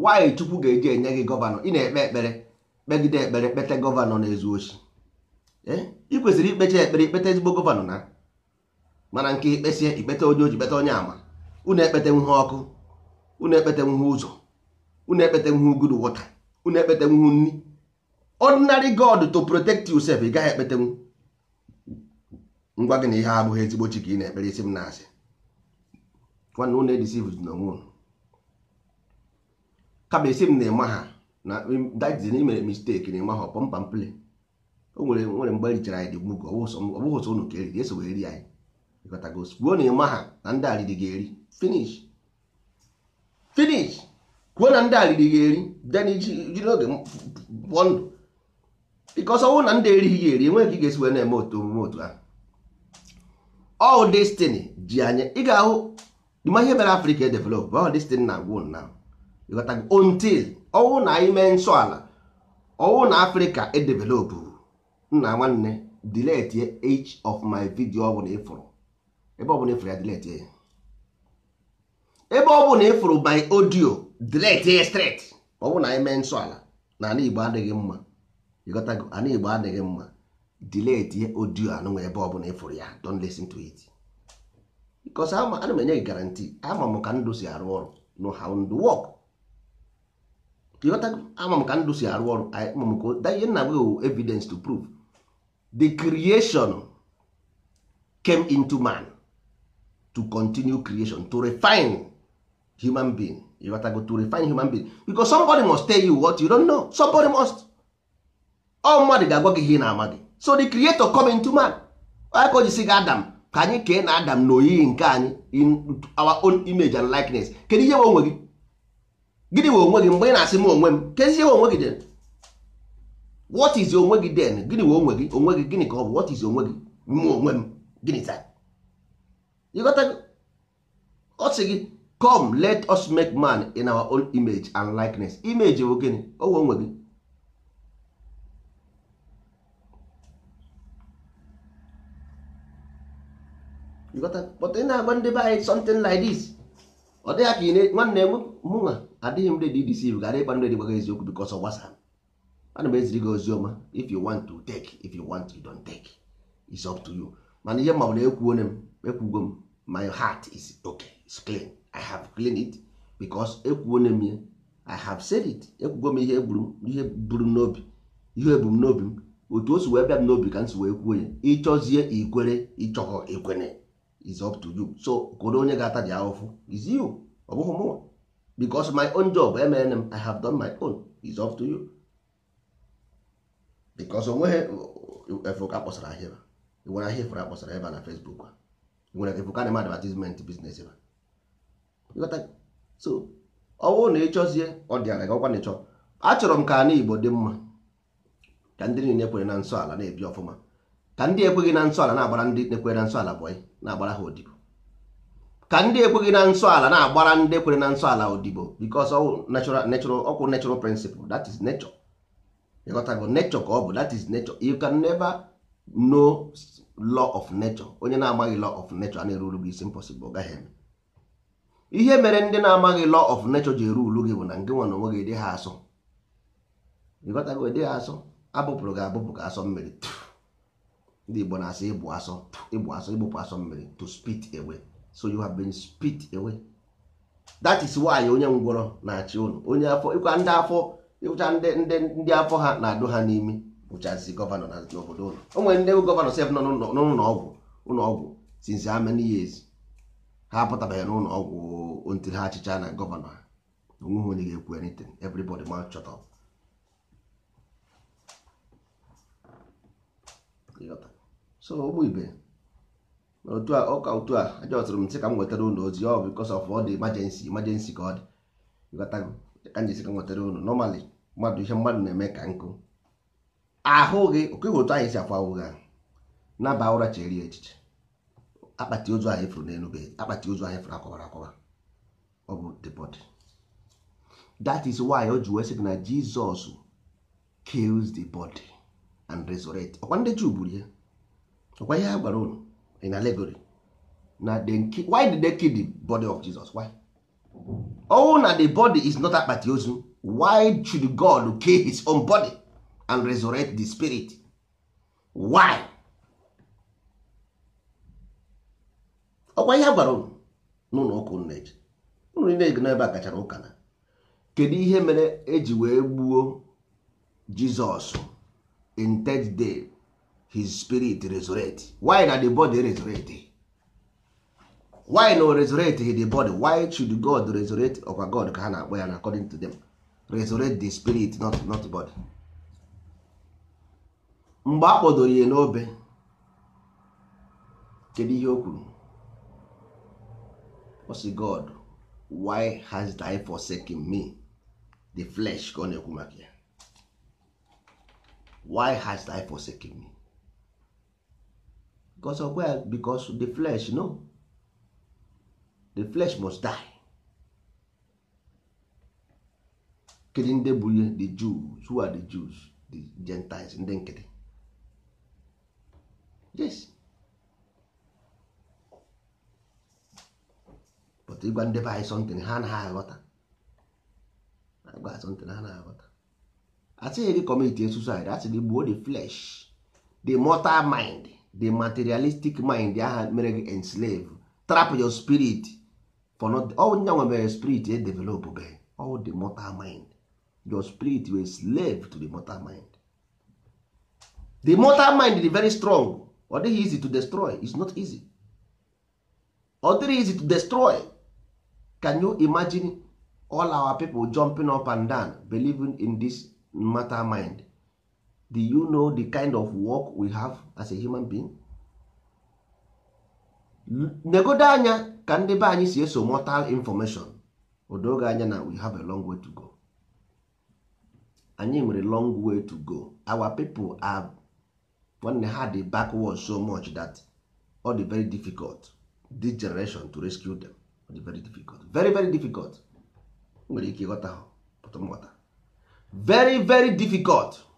nwaanyị Chukwu ga-eje enye gị gọvanọ ị na-ekpe ekpere kpegide ekpere kpete gọvanọ na-ezu ochi ị kwesịrị ikpecha ekpere ikpete ezigbo gọvanọ na mana nke ikpesie ikpete onye oji kpeta onye ama unu ekpete nwuhe ọkụ unu ekpete nwuhe ụzọ unu ekpete nwuhe good water unu ekpete nwuhe nri ordinary God to protect yourself ị gaghị ekpetenwu ngwa gị na ihe abụghị ezigbo chi ka ị na-ekpere isi m na-asị nwanne unu edisivu na onwe unu kama isi m na-eme ha na dajizi na imere misteki na-eme ha ọpọ ọpọmpampili o nwere nwere mgbe erichara anyị dị gbugo ọ bụghị ụsọ ụnụ ka eriri eso eri anyị ịkọtagos kwuo na ịma ha na ndị alịdị ga-eri finish finish kwuo na ndị alịdị ga-eri den ji n'oge pụọ ndụ bikọs ọnwụ na ndị erighị ga-eri enweghị ka ị ga-esi wee na-eme otu omume otu ahụ all destiny ji anya ị ga-ahụ ma ihe mere afrịka edevelop all destiny na agwụ na ịghọta until ọwụ na anyị mee nsọ ala ọwụ na afrịka edevelop nna nwanne delete each of my video ọ bụla ịfụrụ ebe ọbụla ịfụrụ ya delete ya ebe ọbụla ịfụrụ by audio delete ya straight ọwụ na anyị mee nsọ ala na ala igbo adịghị mma ịghọtago ala igbo adịghị mma delete audio anụnwa ebe ọbụla ịfụrụ ya don't listen to it because ana m enye gị garanti ama m ka ndụ si arụ ọrụ no how ndụ work ịghọta ama m ka ndụ si arụ ọrụ ama m ka ihe nna gị evidence to prove the creation came into man to continue creation to refine human being go to refine human being because somebody must tell you what you don't know somebody must ọ mmadụ ga-agwa gị ihe na-ama gị so the creator come into man ka o jisi gị adam ka anyị kee na adam na oyiyi nke anyị in our own image and likeness kedu ihe nwe onwe gị gịnị wee onwe gị mgbe ị na-asị m onwe m kedu ihe onwe gị den what is onwe gị den gịnị wee onwe gị onwe gị gịnị ka ọ bụ what is onwe gị m onwe m gịnị taa ịghọta ọ sị gị come let us make man in our own image and likeness image bụ gịnị onwe onwe gị but ị na-agba ndị be anyị something like this ọ dịghị ka ị na-enwe nwanne m mụnwa adịghị m ready deceive gara ịgba ndị gbaga eziokwu because of WhatsApp ana m eziri gị ozi ọma if you want to take if you want you don't take it's up to you mana ihe mmanwụ na-ekwuo m ekwugo m my heart is okay it's clean i have clean it because ekwuo eh, m ya i have said it ekwugo m ihe ihe buru n'obi ihe ebumnobi m otu o si wee bịa m n'obi ka m si wee kwuo ya ịchọzie ikwere ịchọghọ ekwene is up to you so koro onye ga-ata ji is you ọ bụghị mụnwa because my own job e MNM m i have done my own is up to you because onweghị e efuka kpọsara ahịa e nwere ahịa efere akpọsara ebe na Facebook nwere efuka na advertisement business ebe so ọ bụrụ na ịchọzie ọ dị ala gị ọkwa na ịchọ achọrọ m ka ana Igbo dị mma ka ndị niile kwere na nsọ ala na-ebi ọfụma ka ndị ekweghị na nsọ ala na-agbara ndị ekweghị na nsọ ala bọyị na-agbara ha odibo ka ndị ekweghị na nsọ ala na-agbara ndị ekwere na nsọ ala odibo because natural natural ọkwụ natural principle that is nature ịghọtago nature ka ọ bụ that is nature you can never know law of nature onye na-amaghị law of nature a na-eruru gị isi impossible ọ gaghị eme ihe mere ndị na-amaghị law of nature ji eru ulu gị bụ na ngị nwa na onwe gị dị ha asọ ịghọtago dị ha asọ abụpụrụ gị abụpụ ka asọ mmiri ndị Igbo na-asị ịbụ asọ ịbụ asọ ịgbụpụ asọ mmiri to spit away so you have been spit away that is why onye ngwọrọ na-achị ụnụ onye afọ ịkwa ndị afọ ịkụcha ndị ndị ndị afọ ha na-adụ ha n'imi bụchazi gọvanọ na obodo ụlọ o nwere ndị gọvanọ sef nọ n'ụlọ ọgwụ ụlọ ọgwụ since how many years ha apụtabeghị n'ụlọ ọgwụ ntiri ha achịcha na gọvanọ ha onweghị onye ga-ekwu anything everybody ma shut up so ụmụ ibe otu a ọka otu a aja ọtụrụ m nsị ka m nwetara ụlọ ozi ọ oh, bụ of ọ dị emergency emergency ka ọ dị ka m jesi ka m nwetara ụlọ nọmalị mmadụ ihe mmadụ na-eme ka nkụ ahụ gị okeghe otu anyị si akwa ụgha naba ụra chere ya echiche akpati ozu anyị furu n'elu be akpati ozu anyị furu akọwara akwawa ọ bụ the body that is why o ji wee na Jizọs kills the body and resurrect ọkwa ndị Juu gburu ya ọkwa ihe ha gwara unu in allegory na why did they kill the body of Jesus why oh na the body is not akpati ozu why should God kill his own body and resurrect the spirit why ọkwa ihe ha gwara unu n'ụlọ ụka unu eji unu na-ego n'ebe a kachara ụka na kedu ihe mere eji wee gbuo Jizọs in third day his spirit resurrect why na the body resurrect why no resurrect the body why should god resurrect ọkwa god ka ha na-akpọ ya according to them resurrect the spirit not not body mgbe a kpọdoro ya n'obe kedu ihe o kwuru god why has thy forsaken me the flesh ka ọ na-ekwu maka ya why has thy forsaken me because of where because the flesh no the flesh must die kedu ndị bụ ihe the Jews who are the Jews the Gentiles ndị nkịtị yes but ịgwa ndị be anyị something ha anaghị aghọta agwa something ha anaghị aghọta asịghị gị commit suicide asị gị gbuo the flesh the mortal mind the materialistic mind aha mere gị enslave trap your spirit for not all oh, nwebere spirit e develop be all oh, the mortal mind your spirit were slave to the mortal mind the mortal mind is very strong ọ dịghị easy to destroy is not easy ọ dịghị easy to destroy can you imagine all our people jumping up and down believing in this mortal mind do you know the kind of work we have as a human being? negodo anya ka ndị be anyị si eso mortal information odoge anya na we have a long way to go anyị nwere long way to go our people are nwanne ha dị backward so much that ọ dị very difficult this generation to rescue them ọ dị very difficult very very difficult nwere ike ịghọta ha pụtụmghọta very very difficult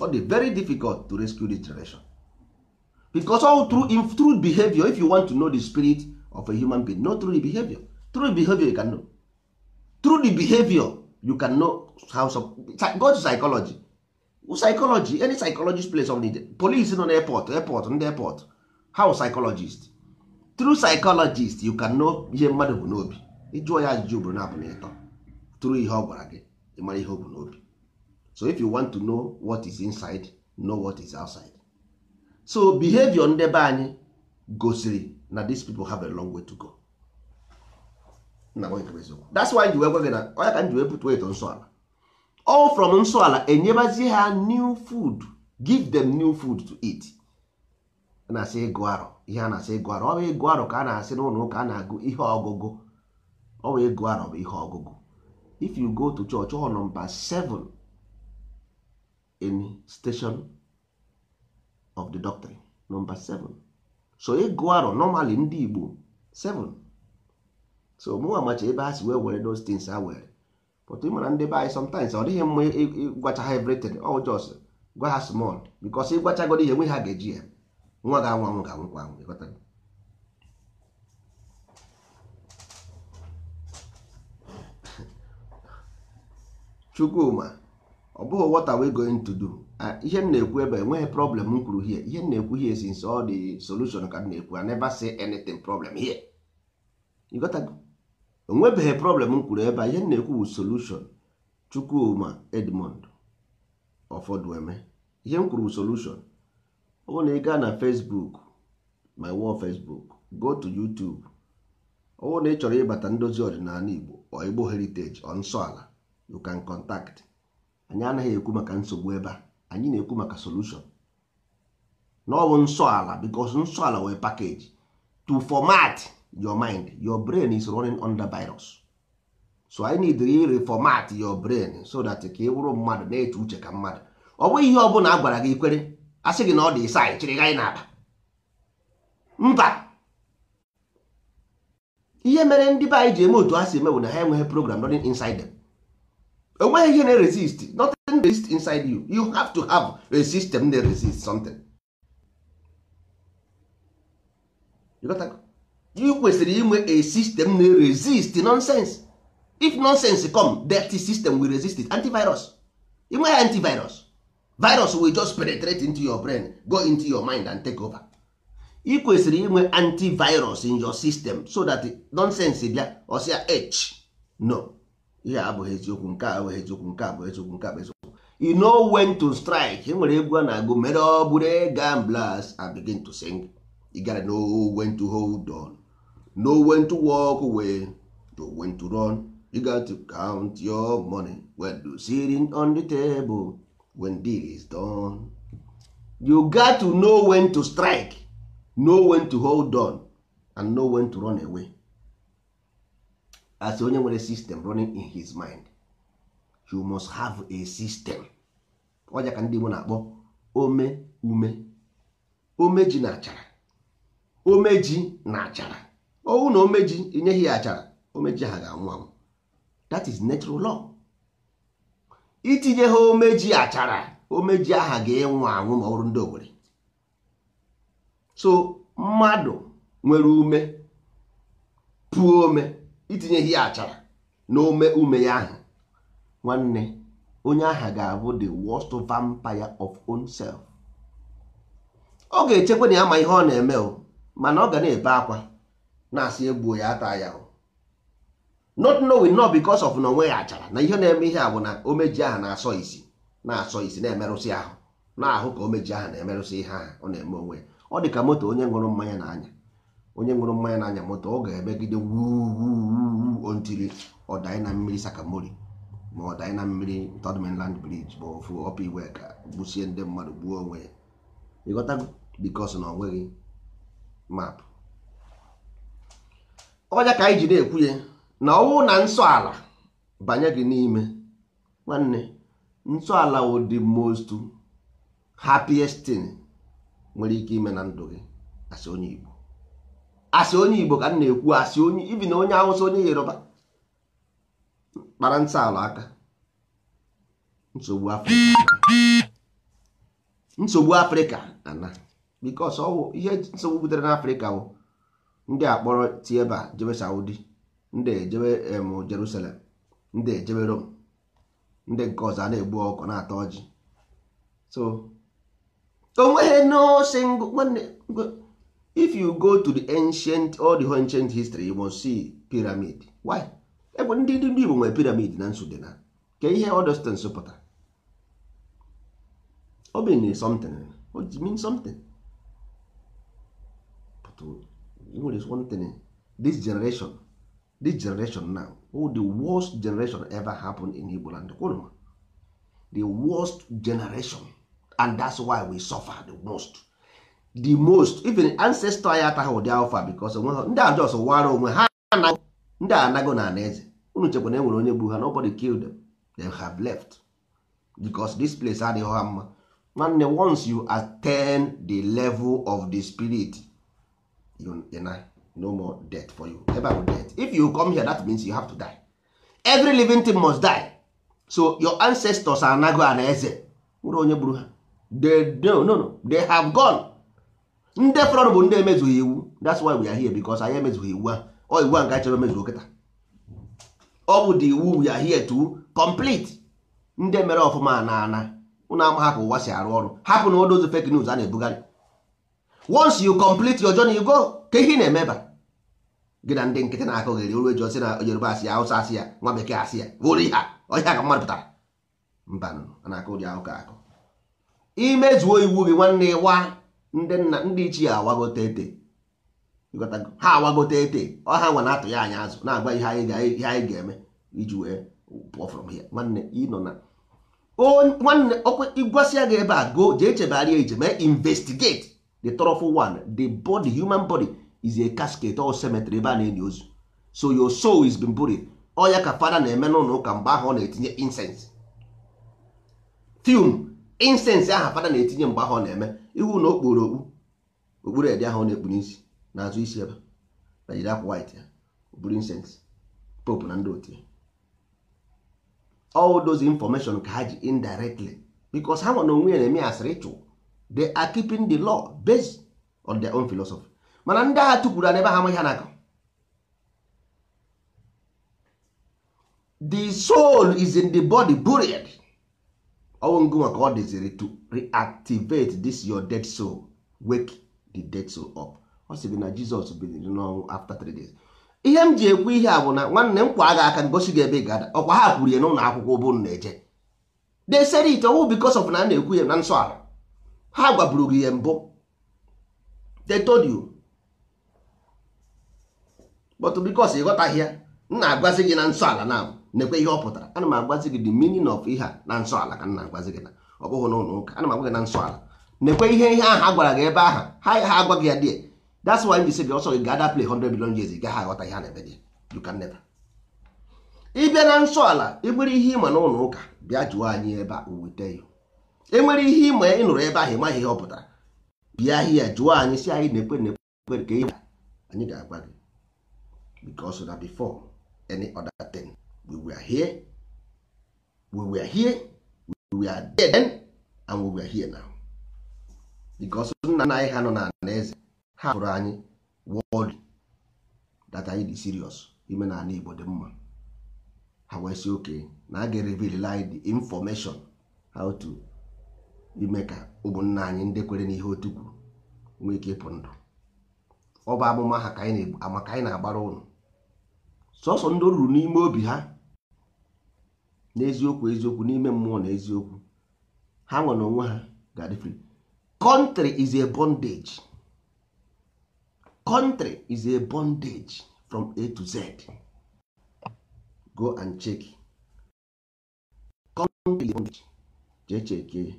ọ dị very difficult to rescue this generation because all through, in, true behavior if you want to know the spirit of a human being not through behavior true behavior you can know through the behavior you can know how some, go to psychology psychology any psychologist place of need police nọ n'airport airport ndị airport how psychologist through psychologist you can know ihe mmadụ bụ n'obi ịjụọ ya ajụjụ bụrụ na abụ na ịtọ true ihe ọ gwara gị ịmara ihe o bụ n'obi so if you want to know what is inside know what is outside so behavior ndebe anyị gosiri na these people have a long way to go that's why ji wee gwa gị na onye ka nji wee pụta eto nsọ all from nsọala ala enyebazie ha new food give them new food to eat na-asị ịgụ arọ ihe a na-asị ịgụ arọ ọ bụ ịgụ arọ ka a na-asị n'ụlọ ụka a na-agụ ihe ọgụgụ ọ bụ ịgụ arọ bụ ihe ọgụgụ if you go to church ọ nọmba in station of the doctrine number 7 so ịgụ e arọ normally ndị Igbo 7 so mụnwa macha ebe a si wee were those things ha were but ị mara ndị be anyị sometimes ọ dịghị mma ịgwacha ha everything all oh, just gwa ha small because ịgwachagodo ihe nwe ha ga-eji ya nwa ga anwa anwụ ga anwụkwa anwụ Chukwuma ọ bụghị what we going to do ah, ihe m na-ekwu ebe enweghị problem m kwuru here ihe m na-ekwu here since ọ dị solution ka m na-ekwu I never say anything problem here you got to onwebeghị problem m kwuru ebe ihe m na-ekwu bụ solution Chukwuma Edmond Ofodueme ihe m kwuru bụ solution ọ bụrụ na ị gaa na Facebook my wall Facebook go to YouTube ọ bụrụ na ị chọrọ ịbata ndozi ọdịnala Igbo or Igbo heritage nsọ ala you can contact anyị anaghị ekwu maka nsogbu ebe a anyị na-ekwu maka solution na ọ nsọ ala because nsọ ala wee pakeji to format your mind your brain is running under virus so I need to reformat your brain so that ka ị bụrụ mmadụ na-eche uche ka mmadụ ọ bụghị ihe ọ bụla a gwara gị ikwere a sị gị na ọ dị isa chịrị gị anyị n'akpa mba ihe mere ndị be anyị ji eme otu ha si eme bụ na ha enweghị program running inside them. enweghị ihe na-resist nothing resist inside you you have to have a system that resist something you kwesịrị inwe a system na resist nonsense if nonsense come dirty system will resist it antivirus inweghị antivirus virus will just penetrate into your brain go into your mind and take over ị kwesịrị inwe antivirus in your system so that nonsense bịa osia h no ihe a abụghị eziokwu nke a abụghị eziokwu nke a bụ eziokwu nke a bụ eziokwu you know when to strike enwere egwu a na-agụ mere ọ bụrụ gamblers and begin to sing you gara know when to hold on no when to walk away no when to run you got to count your money when you sitting on the table when deal is done you got to know when to strike know when to hold on and know when to run away as onye nwere system running in his mind you must have a system ọja ka ndị Igbo na-akpọ ome ume omeji na achara omeji na achara owu na omeji enyeghị ya achara omeji ha ga-anwụ anwụ that is natural law itinye ha omeji achara omeji aha ga enwe anwụ ma ọ bụrụ ndị owere so mmadụ nwere ume pụọ ome itinyeghị ya achara na ome ume ya ahụ nwanne onye aha ga-abụ the worst vampire of own self ọ ga-echekwa na ya ma ihe ọ na-eme o mana ọ ga na-ebe akwa na-asị egbuo ya ata ya o not knowing not because of na onwe ya achara na ihe na-eme ihe a bụ na omeji aha na-asọ isi na-asọ isi na-emerụsị ahụ na-ahụ ka omeji aha na-emerụsị ihe aha ọ na-eme onwe ọ dị ka moto onye ṅụrụ mmanya na anya onye ṅụrụ mmanya n'anya moto ọ ga-emegide wuwu ontiri na mmiri sakamori ma ọdanyị na mmiri third mainland bridge ma ofu ọpa iwe ka gbusie ndị mmadụ gbuo onwe ya ịghọtago bikos na onweghị map ọnya ka anyị ji na-ekwu ya na ọnwụ na nsọ ala banye gị n'ime nwanne nsọ ala wo most happiest tin nwere ike ime na ndụ gị asị onye Igbo asị onye igbo ka m na-ekwu asị onye ibi na onye awụsa onye yoruba kpara ala aka nsogbu afrịka nsogbu na ana bikos ọwụ ihe nsogbu butere n'afrịka bụ ndị akpọrọ tieba jebe saudi ndị ejebe em jerusalem ndị ejebe rom ndị nke ọzọ a na-egbu ọkụ na-ata ọjị so onweghị if you go to the ancient all the ancient history you must see pyramid why ebe ndị ndị Igbo nwere pyramid na Sudan ka ihe odostens pụtara o bin something o ji mean something but e nwere something this generation this generation now oh, the worst generation ever happen in Igbo land the worst generation and that's why we suffer the most the most even ancestor ya ataghị ụdị alfa because ndị a just wara onwe ha ndị a anago na ana eze unu chekwa na enwere onye gbu ha nobody killed them they have left because this place adịghị ha mma nwanne once you attain the level of the spirit you, deny no more death for you ever bụ death if you come here that means you have to die every living thing must die so your ancestors anago ana eze nwere onye gburu ha they, no, no, no. they have gone ndị fọrọ bụ ndị emezughị iwu that's why we are here because anyị emezughị iwu a ọ iwu a nga chọrọ emezu okịta ọ bụ the iwu we are here to complete ndị mere ọfụma na ana ụnụ ama ka ụwa si arụ ọrụ hapụ na odozi fake news a na-ebugharị once you complete your journey you go ka ihe na-emeba gị na ndị nkịtị na-akụ ghere oru eji osi na Yoruba asị ya Hausa asị ya nwa bekee asị ya oru ihe ọhịa ka mmadụ pụtara mba na-akụ ụdị ahụ ka akụ imezuo iwu gị nwanne ịwa ndị nna ndị ichie awagote ete ha awagote ete ọ ha nwa na-atụ ya anya azụ na-agwa ihe anyị ga-eme iji wee pụọ from here nwanne ịnọ na nwanne ịgwasị ya gị ebe a go jee chebegharịa ije mee investigate the thoroughful one the body human body is a casket or cemetery ebe a na-enyi ozu so your soul is been buried ọ ya ka fada na-eme n'ụlọ ụka mgbe ahụ ọ na-etinye incense fume insensị aha fada na-etinye mgbe ahụ ọ na-eme ihu na okporo okpu okpuru edi ahụ ọ na-ekpu n'isi azụ isi ebe na jiri akwa wit ya oburu insensị pope na ndị otu ya all those information ka ha ji indirectly because ha nwana onwe ya na-eme asịrị ịchụ they are keeping the law based on their own philosophy mana ndị agha tukwuru n'ebe ha amaghị ha n'aka the soul is in the body buried ọnwụngụnwa ka ọ dịziri to reactivate this your dead soul wake the dead soul up ọ sị gị na Jizọs biliri n'ọnwụ after three days ihe m ji ekwu ihe a bụ na nwanne m kwa agha aka ngosi gị ebe ị ga-ada ọkwa ha kwuru ya n'ụlọ akwụkwọ ụbụrụ na-eje they said it ọwụ because of na na-ekwu ya na nsọ ala ha gwaburu gị ya mbụ they but because ị ya m na-agwazi gị na nsọ ala na nekwe ihe ọ pụtara ana m agwazi gị the meaning of ihe a na nsọ ala ka m na-agwazi gị na ọ bụghị na ụka ana m agwa gị na nsọ ala nekwe ihe ihe ahụ a gwara gị ebe aha ha ha agwa gị ya dị that's why m ji si gị ọsọ gị gada play 100 billion years gaghị aghọta ihe a na-eme dị you can never ịbịa na nsọ ala ịbụrụ ihe ịma n'ụlọ ụka bịa jụọ anyị ebe a ya enwere ihe ịma ị nụrụ ebe ahụ ị ịmaghị ihe ọ pụtara bịa ahịa jụọ anyị si anyị na-ekwe na-ekwe ka anyị ga-agwa gị because na before any other thing we were here we were here we were there then and we were here now because nna nna anyị ha nọ na eze ha hụrụ anyị world data anyị dị serious ime na ala Igbo dị mma ha wee si oke na a ga-erevil anyị the information how to ime ka ụmụnna anyị ndị kwere n'ihe otu kwuru nwee ike ịpụ ndụ ọ bụ amụma ha ka anyị na-agbara ụnụ sọsọ ndị ruru n'ime obi ha n'eziokwu eziokwu n'ime mmụọ na eziokwu ha nwere onwe ha ga-adị free is a bondage country is a bondage from a to z go and check country is a bondage jee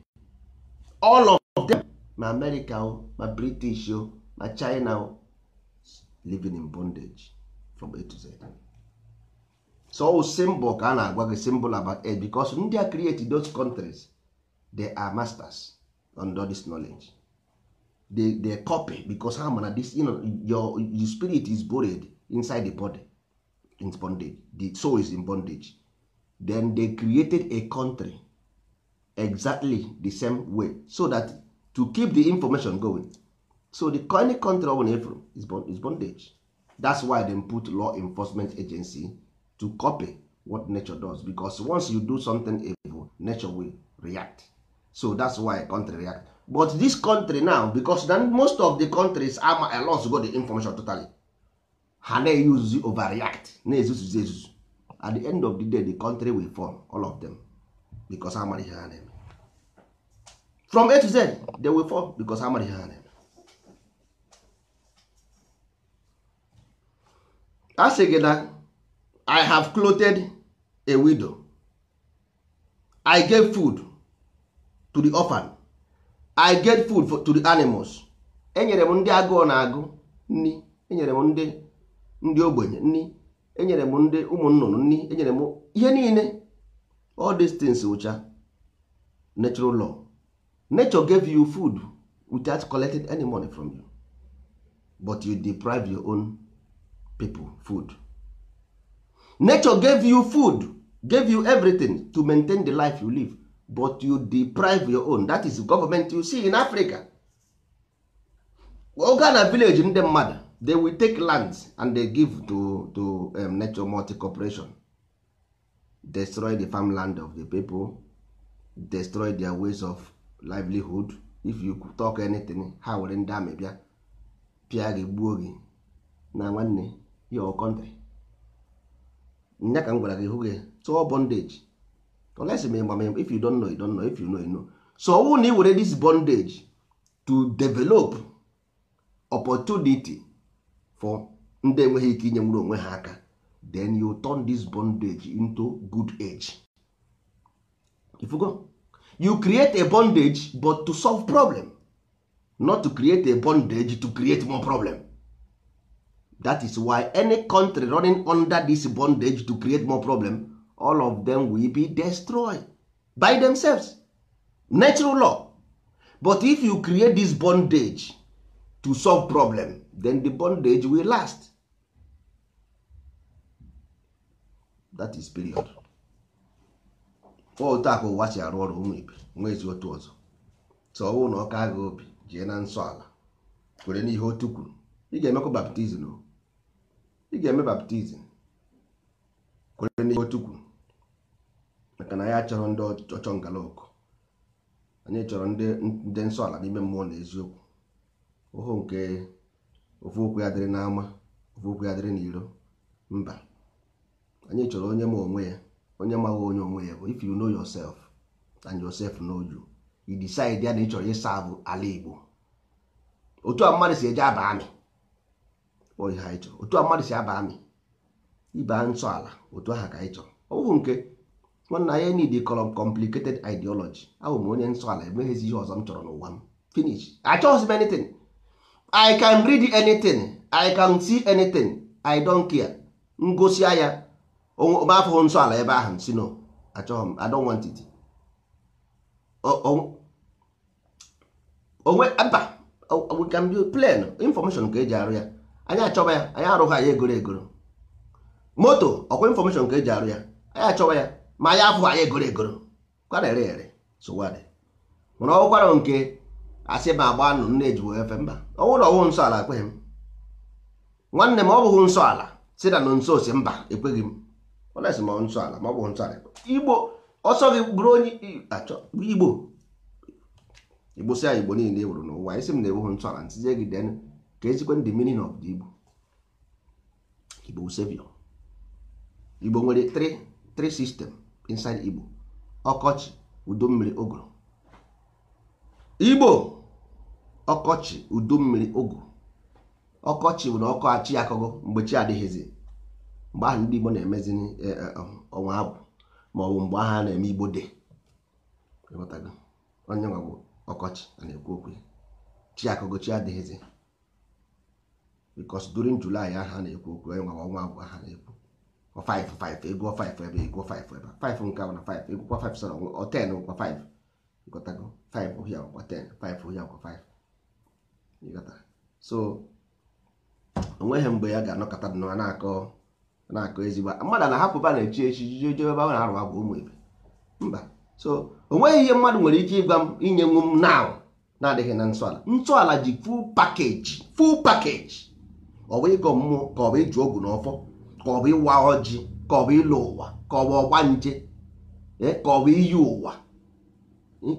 all of them ma america o ma british o ma china o living in bondage from a to z. so symbol ka a na-agwa gị symbol about age because ndị a create those countries they are masters on this knowledge they, they copy because ha mana this you know, your, your spirit is buried inside the body in bondage the soul is in bondage then they created a country exactly the same way so that to keep the information going so the any country ọ bụla is bondage that's why them put law enforcement agency to copy what nature does because once you do something evil nature will react so that's why country react but this country now because then most of the countries ama alos go the information totally ha na use overreact na-ezuzuzi ezuzu at the end of the day the country will fall all of them because amara ihe ha na-eme from a to z they will fall because amara ihe ha na-eme a sị gị na I have clothed a widow. I gave food to the orphan. I gave food for, to the animals. Enyere m ndị agụụ na-agụ nni Enyere m ndị ndị ogbenye nni Enyere m ndị ụmụ nnụnụ Enyere m ihe niile. All these things ụcha natural law. Nature gave you food without collecting any money from you. But you deprive your own people food. nature gave you food gave you everything to maintain the life you live but you deprive your own that is government you see in africa oga na village ndị mmadụ they will take lands and they give to, to um, nature multi corporation destroy the farmland of the people destroy their ways of livelihood if you talk anything ha were ndị amị bịa gị gbuo gị na nwanne your country nya ka m gwara gị hụ gị tụọ bondage unless ma ịgba if you don't know you don't know if you know you know so ọ wụ na ị were this bondage to develop opportunity for ndị enweghị ike inye nwere onwe ha aka then you turn this bondage into good age ifugo you create a bondage but to solve problem not to create a bondage to create more problem that is why any country running under this bondage to create more problem all of them will be destroyed by themselves natural law but if you create this bondage to solve problem then the bondage will last that is period otu aka ụwa arụ ọrụ ụmụ ibe nwa ezi otu ọzọ so ọnwụ na ọka agha obi jee na nsọ ala kwere n'ihe otu kwuru ị ga-emekwa baptizim o ị ga-eme baptizim kwere n'ihe otu maka na ya chọrọ ndị ọchọ ngala ọkụ anyị chọrọ ndị nsọ ala n'ime mmụọ na eziokwu ụhụ nke ofu okwu ya dịrị n'ama ofu okwu ya dịrị n'iro mba anyị chọrọ onye ma onwe ya onye maghị onye onwe ya bụ if you know yourself and yourself know you you decide ya na ị chọrọ ịsa bụ ala Igbo otu a mmadụ si eje aba amị ihe anyị ịchọ otu a mmadụ si aba amị ịba nsọ ala otu aha ka anyị chọrọ ọ bụghị nke nwanna anyị need complicated ideology ahụ m onye nsọ ala emeghizi ihe ọzọ m chọrọ n'ụwa m finish achọghịzi m anything i can read anything i can see anything i don't care ngosi ya afụghị nsọ ala ebe ahụ si no achọghị m i don't want it onwe aba we can be plain information ka eji arụ ya anyị achọba ya anyị arụghị anya egoro egoro moto ọkwa infọmeshọn nke eji arụ ya anyị achọba ya ma anyị afụghị anyị egoro egoro kwara ere ere sụwadị mana ọkwara nke asị ma agba nụ nne ejiwo efe mba ọnwụ na ọwụ nsọ ala ekweghị m nwanne m ọ bụghị nsọ ala si na nso si mba ekweghị m ọnesi ma nsọ ala ma ọ bụghị nsọ ala igbo ọsọ gị bụrụ onye achọ igbo igbo si igbo niile e wuru n'ụwa anyị m na-ewughị nsọ ala ntizie gị denu ka ezikwe the meaning of the Igbo Igbo savior Igbo nwere three sistem system inside Igbo ọkọchị udo mmiri ụgụrụ Igbo ọkọchị udo mmiri ụgụrụ ọkọchị bụ na ọkọ achị akọgọ mgbe chi adịghịzi mgbe ahụ ndị Igbo na-emezi e, e, um, ọnwa abụ ma ọ bụ mgbe ahụ a na-eme Igbo de onye nwa bụ ọkọchị na-ekwu okwu chi akọgọ chi adịghịzi because during July aha na-ekwu okwu onye nwa ọnwa abụọ aha na-ekwu 5 5 ego 5 ebe ego 5 ebe 5 nke na 5 egwukwa 5 sọrọ ọ 10 gwa 5 5 ohia gwa ten, 5 ohia 5 ịgọta so onweghị mgbe ya ga-anọkọta dị na-akọ na-akọ ezigbo mmadụ na-ahapụba na-echi echi jije ụmụ ebe mba so onweghị ihe mmadụ nwere ike ịgwa m inye m na adịghị na nsọala nsọala ji full pakeji ọ bụ ịgọ mmụọ ka ọ bụ ịjụ ogwu na ọfọ ka ọ bụ ịwa ọjị ka ọ bụ ịlụ ụwa ka ọ bụ ọgba nje e, ka ọ bụ iyi ụwa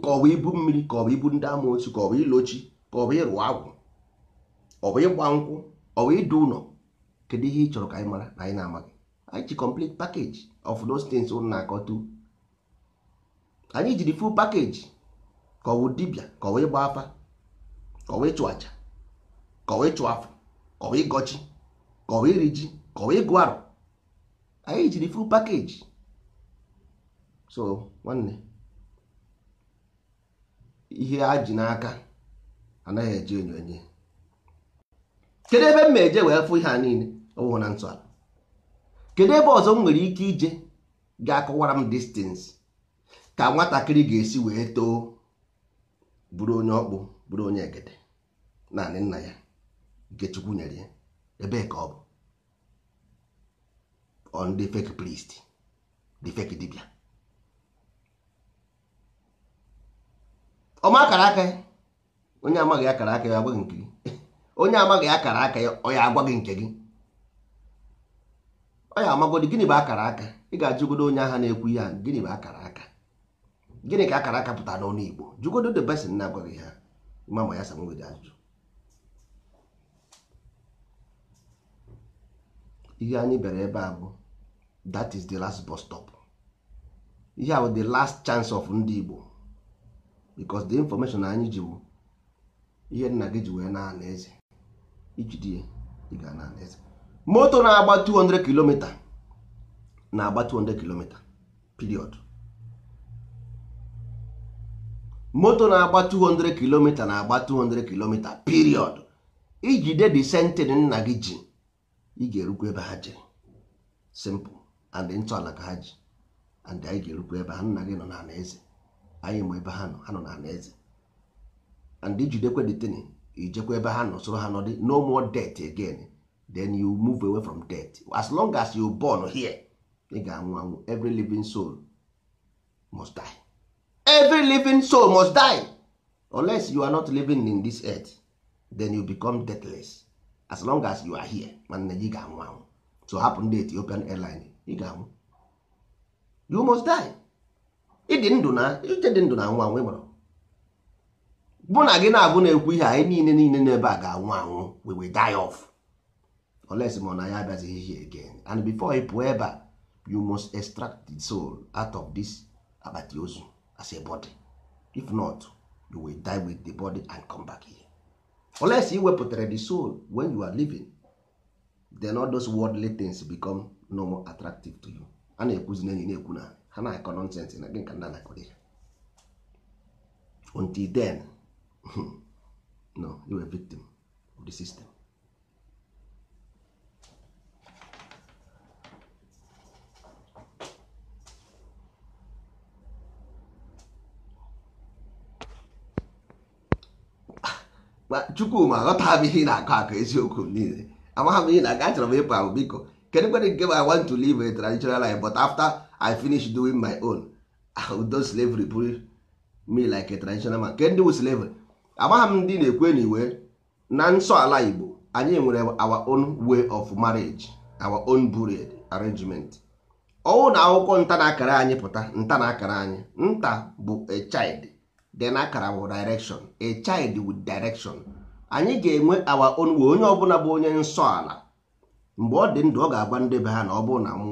ka ọ bụ ibu mmiri ka ọ bụ ibu ndị amoosu ka ọ bụ ilochi ka ọ bụ ịrụ agwụ ọ bụ ịgba nkwụ ọ bụ ịdụ ụlọ kedu ihe ị chọrọ ka anyị mara na anyị na-amaghị anyị ji complete package of those things ụnụ na-akọta anyị jiri full package ka ọ bụ dibịa ka ọ bụ ịgba afa ka ọ bụ ịchụ aja ka ọ bụ ịchụ afọ kọwa ịgọchi kọwa iri ji kọwa ịgụ arụ anyị jiri full pakeji. so nwanne ihe a ji n'aka anaghị eji enyo kedu ebe m eje wee fụ ihe a niile ọwụhụ na ntọala kedu ebe ọzọ m nwere ike ije ga-akọwara m distance ka nwatakịrị ga-esi wee too bụrụ onye ọkpụ bụrụ onye egede naanị nna ya nke chukwu nyere ya ebe ka ọ bụ on the fake priest the fake dibia ọma akara aka ya onye amaghị akara aka ya gị nke gị onye amaghị akara aka ya ọ ya gị nke gị ọ ya amagodi gịnị bụ akara aka ị ga-ajụgodo onye agha na-ekwu ya gịnị bụ akara aka gịnị ka akara aka pụtara n'ọnụ Igbo jụgodo the person na gị ha ịma ya sa nwere ajụjụ ihe anyị bịara ebe a bụ that is the last bus stop ihe a bụ the last chance of ndị Igbo because the information anyị ji bụ ihe nna gị ji wee na eze ijide ị ga na eze moto na-agba 200 km na-agba 200 km period moto na-agba 200 km na-agba 200 km period ijide the sentin nna gị ji ị ga-erukwa ebe ha jere simple and ntọala ka ha ji and anyị ga-erukwa ebe ha nna gị nọ na eze. anyị ma ebe ha nọ ha nọ na eze. and ijidekwe detini ijekwa ebe ha nọ soro ha nọdị no more death again then you move away from death. as long as you born here ị ga-anwụ anwụ every living soul must die every living soul must die unless you are not living in this earth then you become deathless as long as you are here nwanne gị ga-anwụ anwụ so hapụ ndị Ethiopian airline ị ga-anwụ you must die ịdị ndụ na ịdị ndụ na anwụ anwụ ịgbara bụ na gị na-agụ na-ekwu ihe anyị niile niile n'ebe a ga-anwụ anwụ we will die off unless ma na ya abịazighị ihe again and before ị pụọ ebe a you must extract the soul out of this akpati ozu as a body if not you will die with the body and come back here. unless you wepụtara the soul when you are living then all those worldly things become no more attractive to you a na-ekwuzi na enyi na-ekwu na ha na-akọ nonsens na gị nka nna until then no you were a victim of the system chukwuma aghọtaghị ihe na-akọ akọ eziokwu niile amagha m ihe na-aga achọrọ m ịpụ ahụ biko kedu kwere nke I want to live a traditional life but after I finish doing my own do slavery bụrụ me like a traditional man kedu wu slavery amagha m ndị na-ekwe na iwe na nsọ ala Igbo anyị nwere our own way of marriage our own burial arrangement ọnwụ na akwụkwọ nta na akara anyị pụta nta na akara anyị nta bụ a child then akara wụ direction a child with direction anyị ga-enwe awa onwe onye ọbụla bụ onye nsọ ala mgbe ọ dị ndụ ọ ga-agwa ndị be ha na ọ bụrụ na m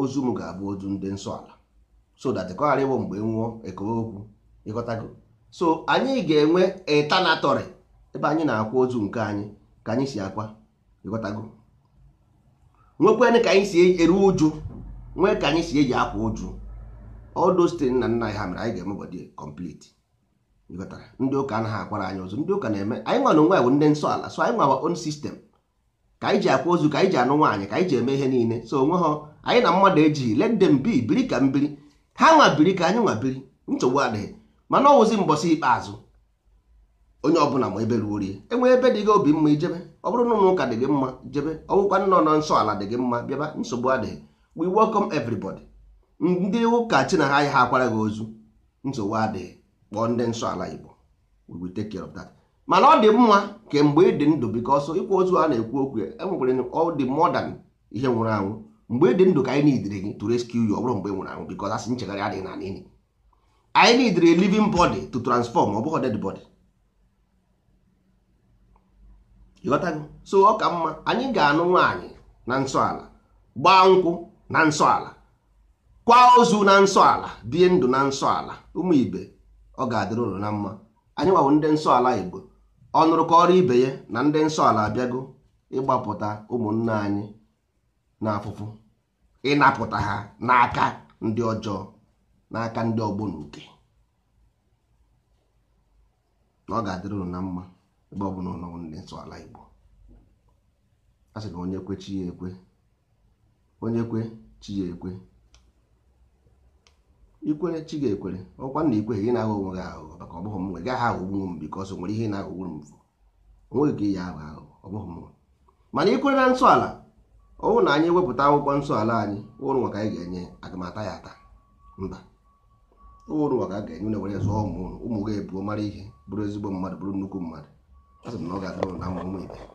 ozu m ga-abụ ozu ndị nsọ ala so that kọghara ịbụ mgbe nwụọ ekowe okwu ịghọtago so anyị ga-enwe etanatọrị ebe anyị na-akwa ozu nke anyị ka anyị si akwa ịghọtago nwekwenụ ka anyị si e-, eru uju nwee ka anyị si eji akwa ụjụ. all those na nna ha mere anyị ga-eme bọdị complete ndị ụka anaghị akwara anyị ọzọ ndị ụka na-eme anyị nwa na onwe bụ ndị nsọ ala so anyị nwa our own ka anyị ji akwa ozu ka anyị ji anụ nwaanyị ka anyị ji eme ihe niile so onwe ha anyị na mmadụ ejighị let them bi biri ka mbiri ha nwa biri ka anyị nwa biri nsogbu adịghị mana ọwụzi mbọsị ikpeazụ onye ọbụla ma ebe ruo rie enwee ebe dị gị obi mma ijebe ọ bụrụ na ụlọ ụka dị gị mma jebe ọwụkwa nnọọ nọ nsọ ala dị gị mma bịaba nsogbu adịghị we welcome everybody ndị ụka chi na ha ya akwara gị ozu nsogbu adịghị kpọọ ndị nsọ ala igbo we take care of that mana ọ dị mma kemgbe mgbe ị dị ndụ because ịkwa ozu a na-ekwu okwu enwekwere ọ dị modern ihe nwụrụ anwụ mgbe ị dị ndụ ka anyị nidiri gị to rescue you ọ mgbe nwụrụ anwụ because asị nchegharị adịghị na nini anyị nidiri living body to transform ọ bụghị dead body ịghọtago so ọ ka mma anyị ga-anụ nwaanyị na nsọ ala gbaa nkwụ na nsọ ala kwa ozu na nsọ ala bie ndụ na nsọ ala ụmụ ibe ọ ga-adịrị ụlọ na mma anyị gbawo ndị nsọ ala igbo ọ nụrụ ka ọrụ ibe ya na ndị nsọ ala abịago ịgbapụta ụmụnna anyị na n'afụfụ ịnapụta ha n'aka ndị ọjọọ n'aka ndị ọgbọ na uke na ọ ga-adịrị ụlọ na mma ebe ọ bụla ụlọ ndị nsọ ala igbo a sị na onye kwe chi ya ekwe onye kwe chi ya ekwe ikwere chi ga-ekwere ọkwa na ikwere gị na onwe gị aghụghọ maka ọ bụghị m nwe gaghị aghọgbu m bikọs nwere ihe na-aghọgburu m onweghị ka ihe ahụ aghụghọ ọ bụghị m mana ikwere na nsọala ọhụ na anyị wepụta akwụkwọ nsọala anyị ụrụ maka anyị ga-enye agamata ya ata mba ụrụ maka a ga-enye na were zụọ ụmụ ụmụ gị ebuo mara ihe bụrụ ezigbo mmadụ bụrụ nnukwu mmadụ a sị m na ọ ga-adịrụ na ụmụ ibe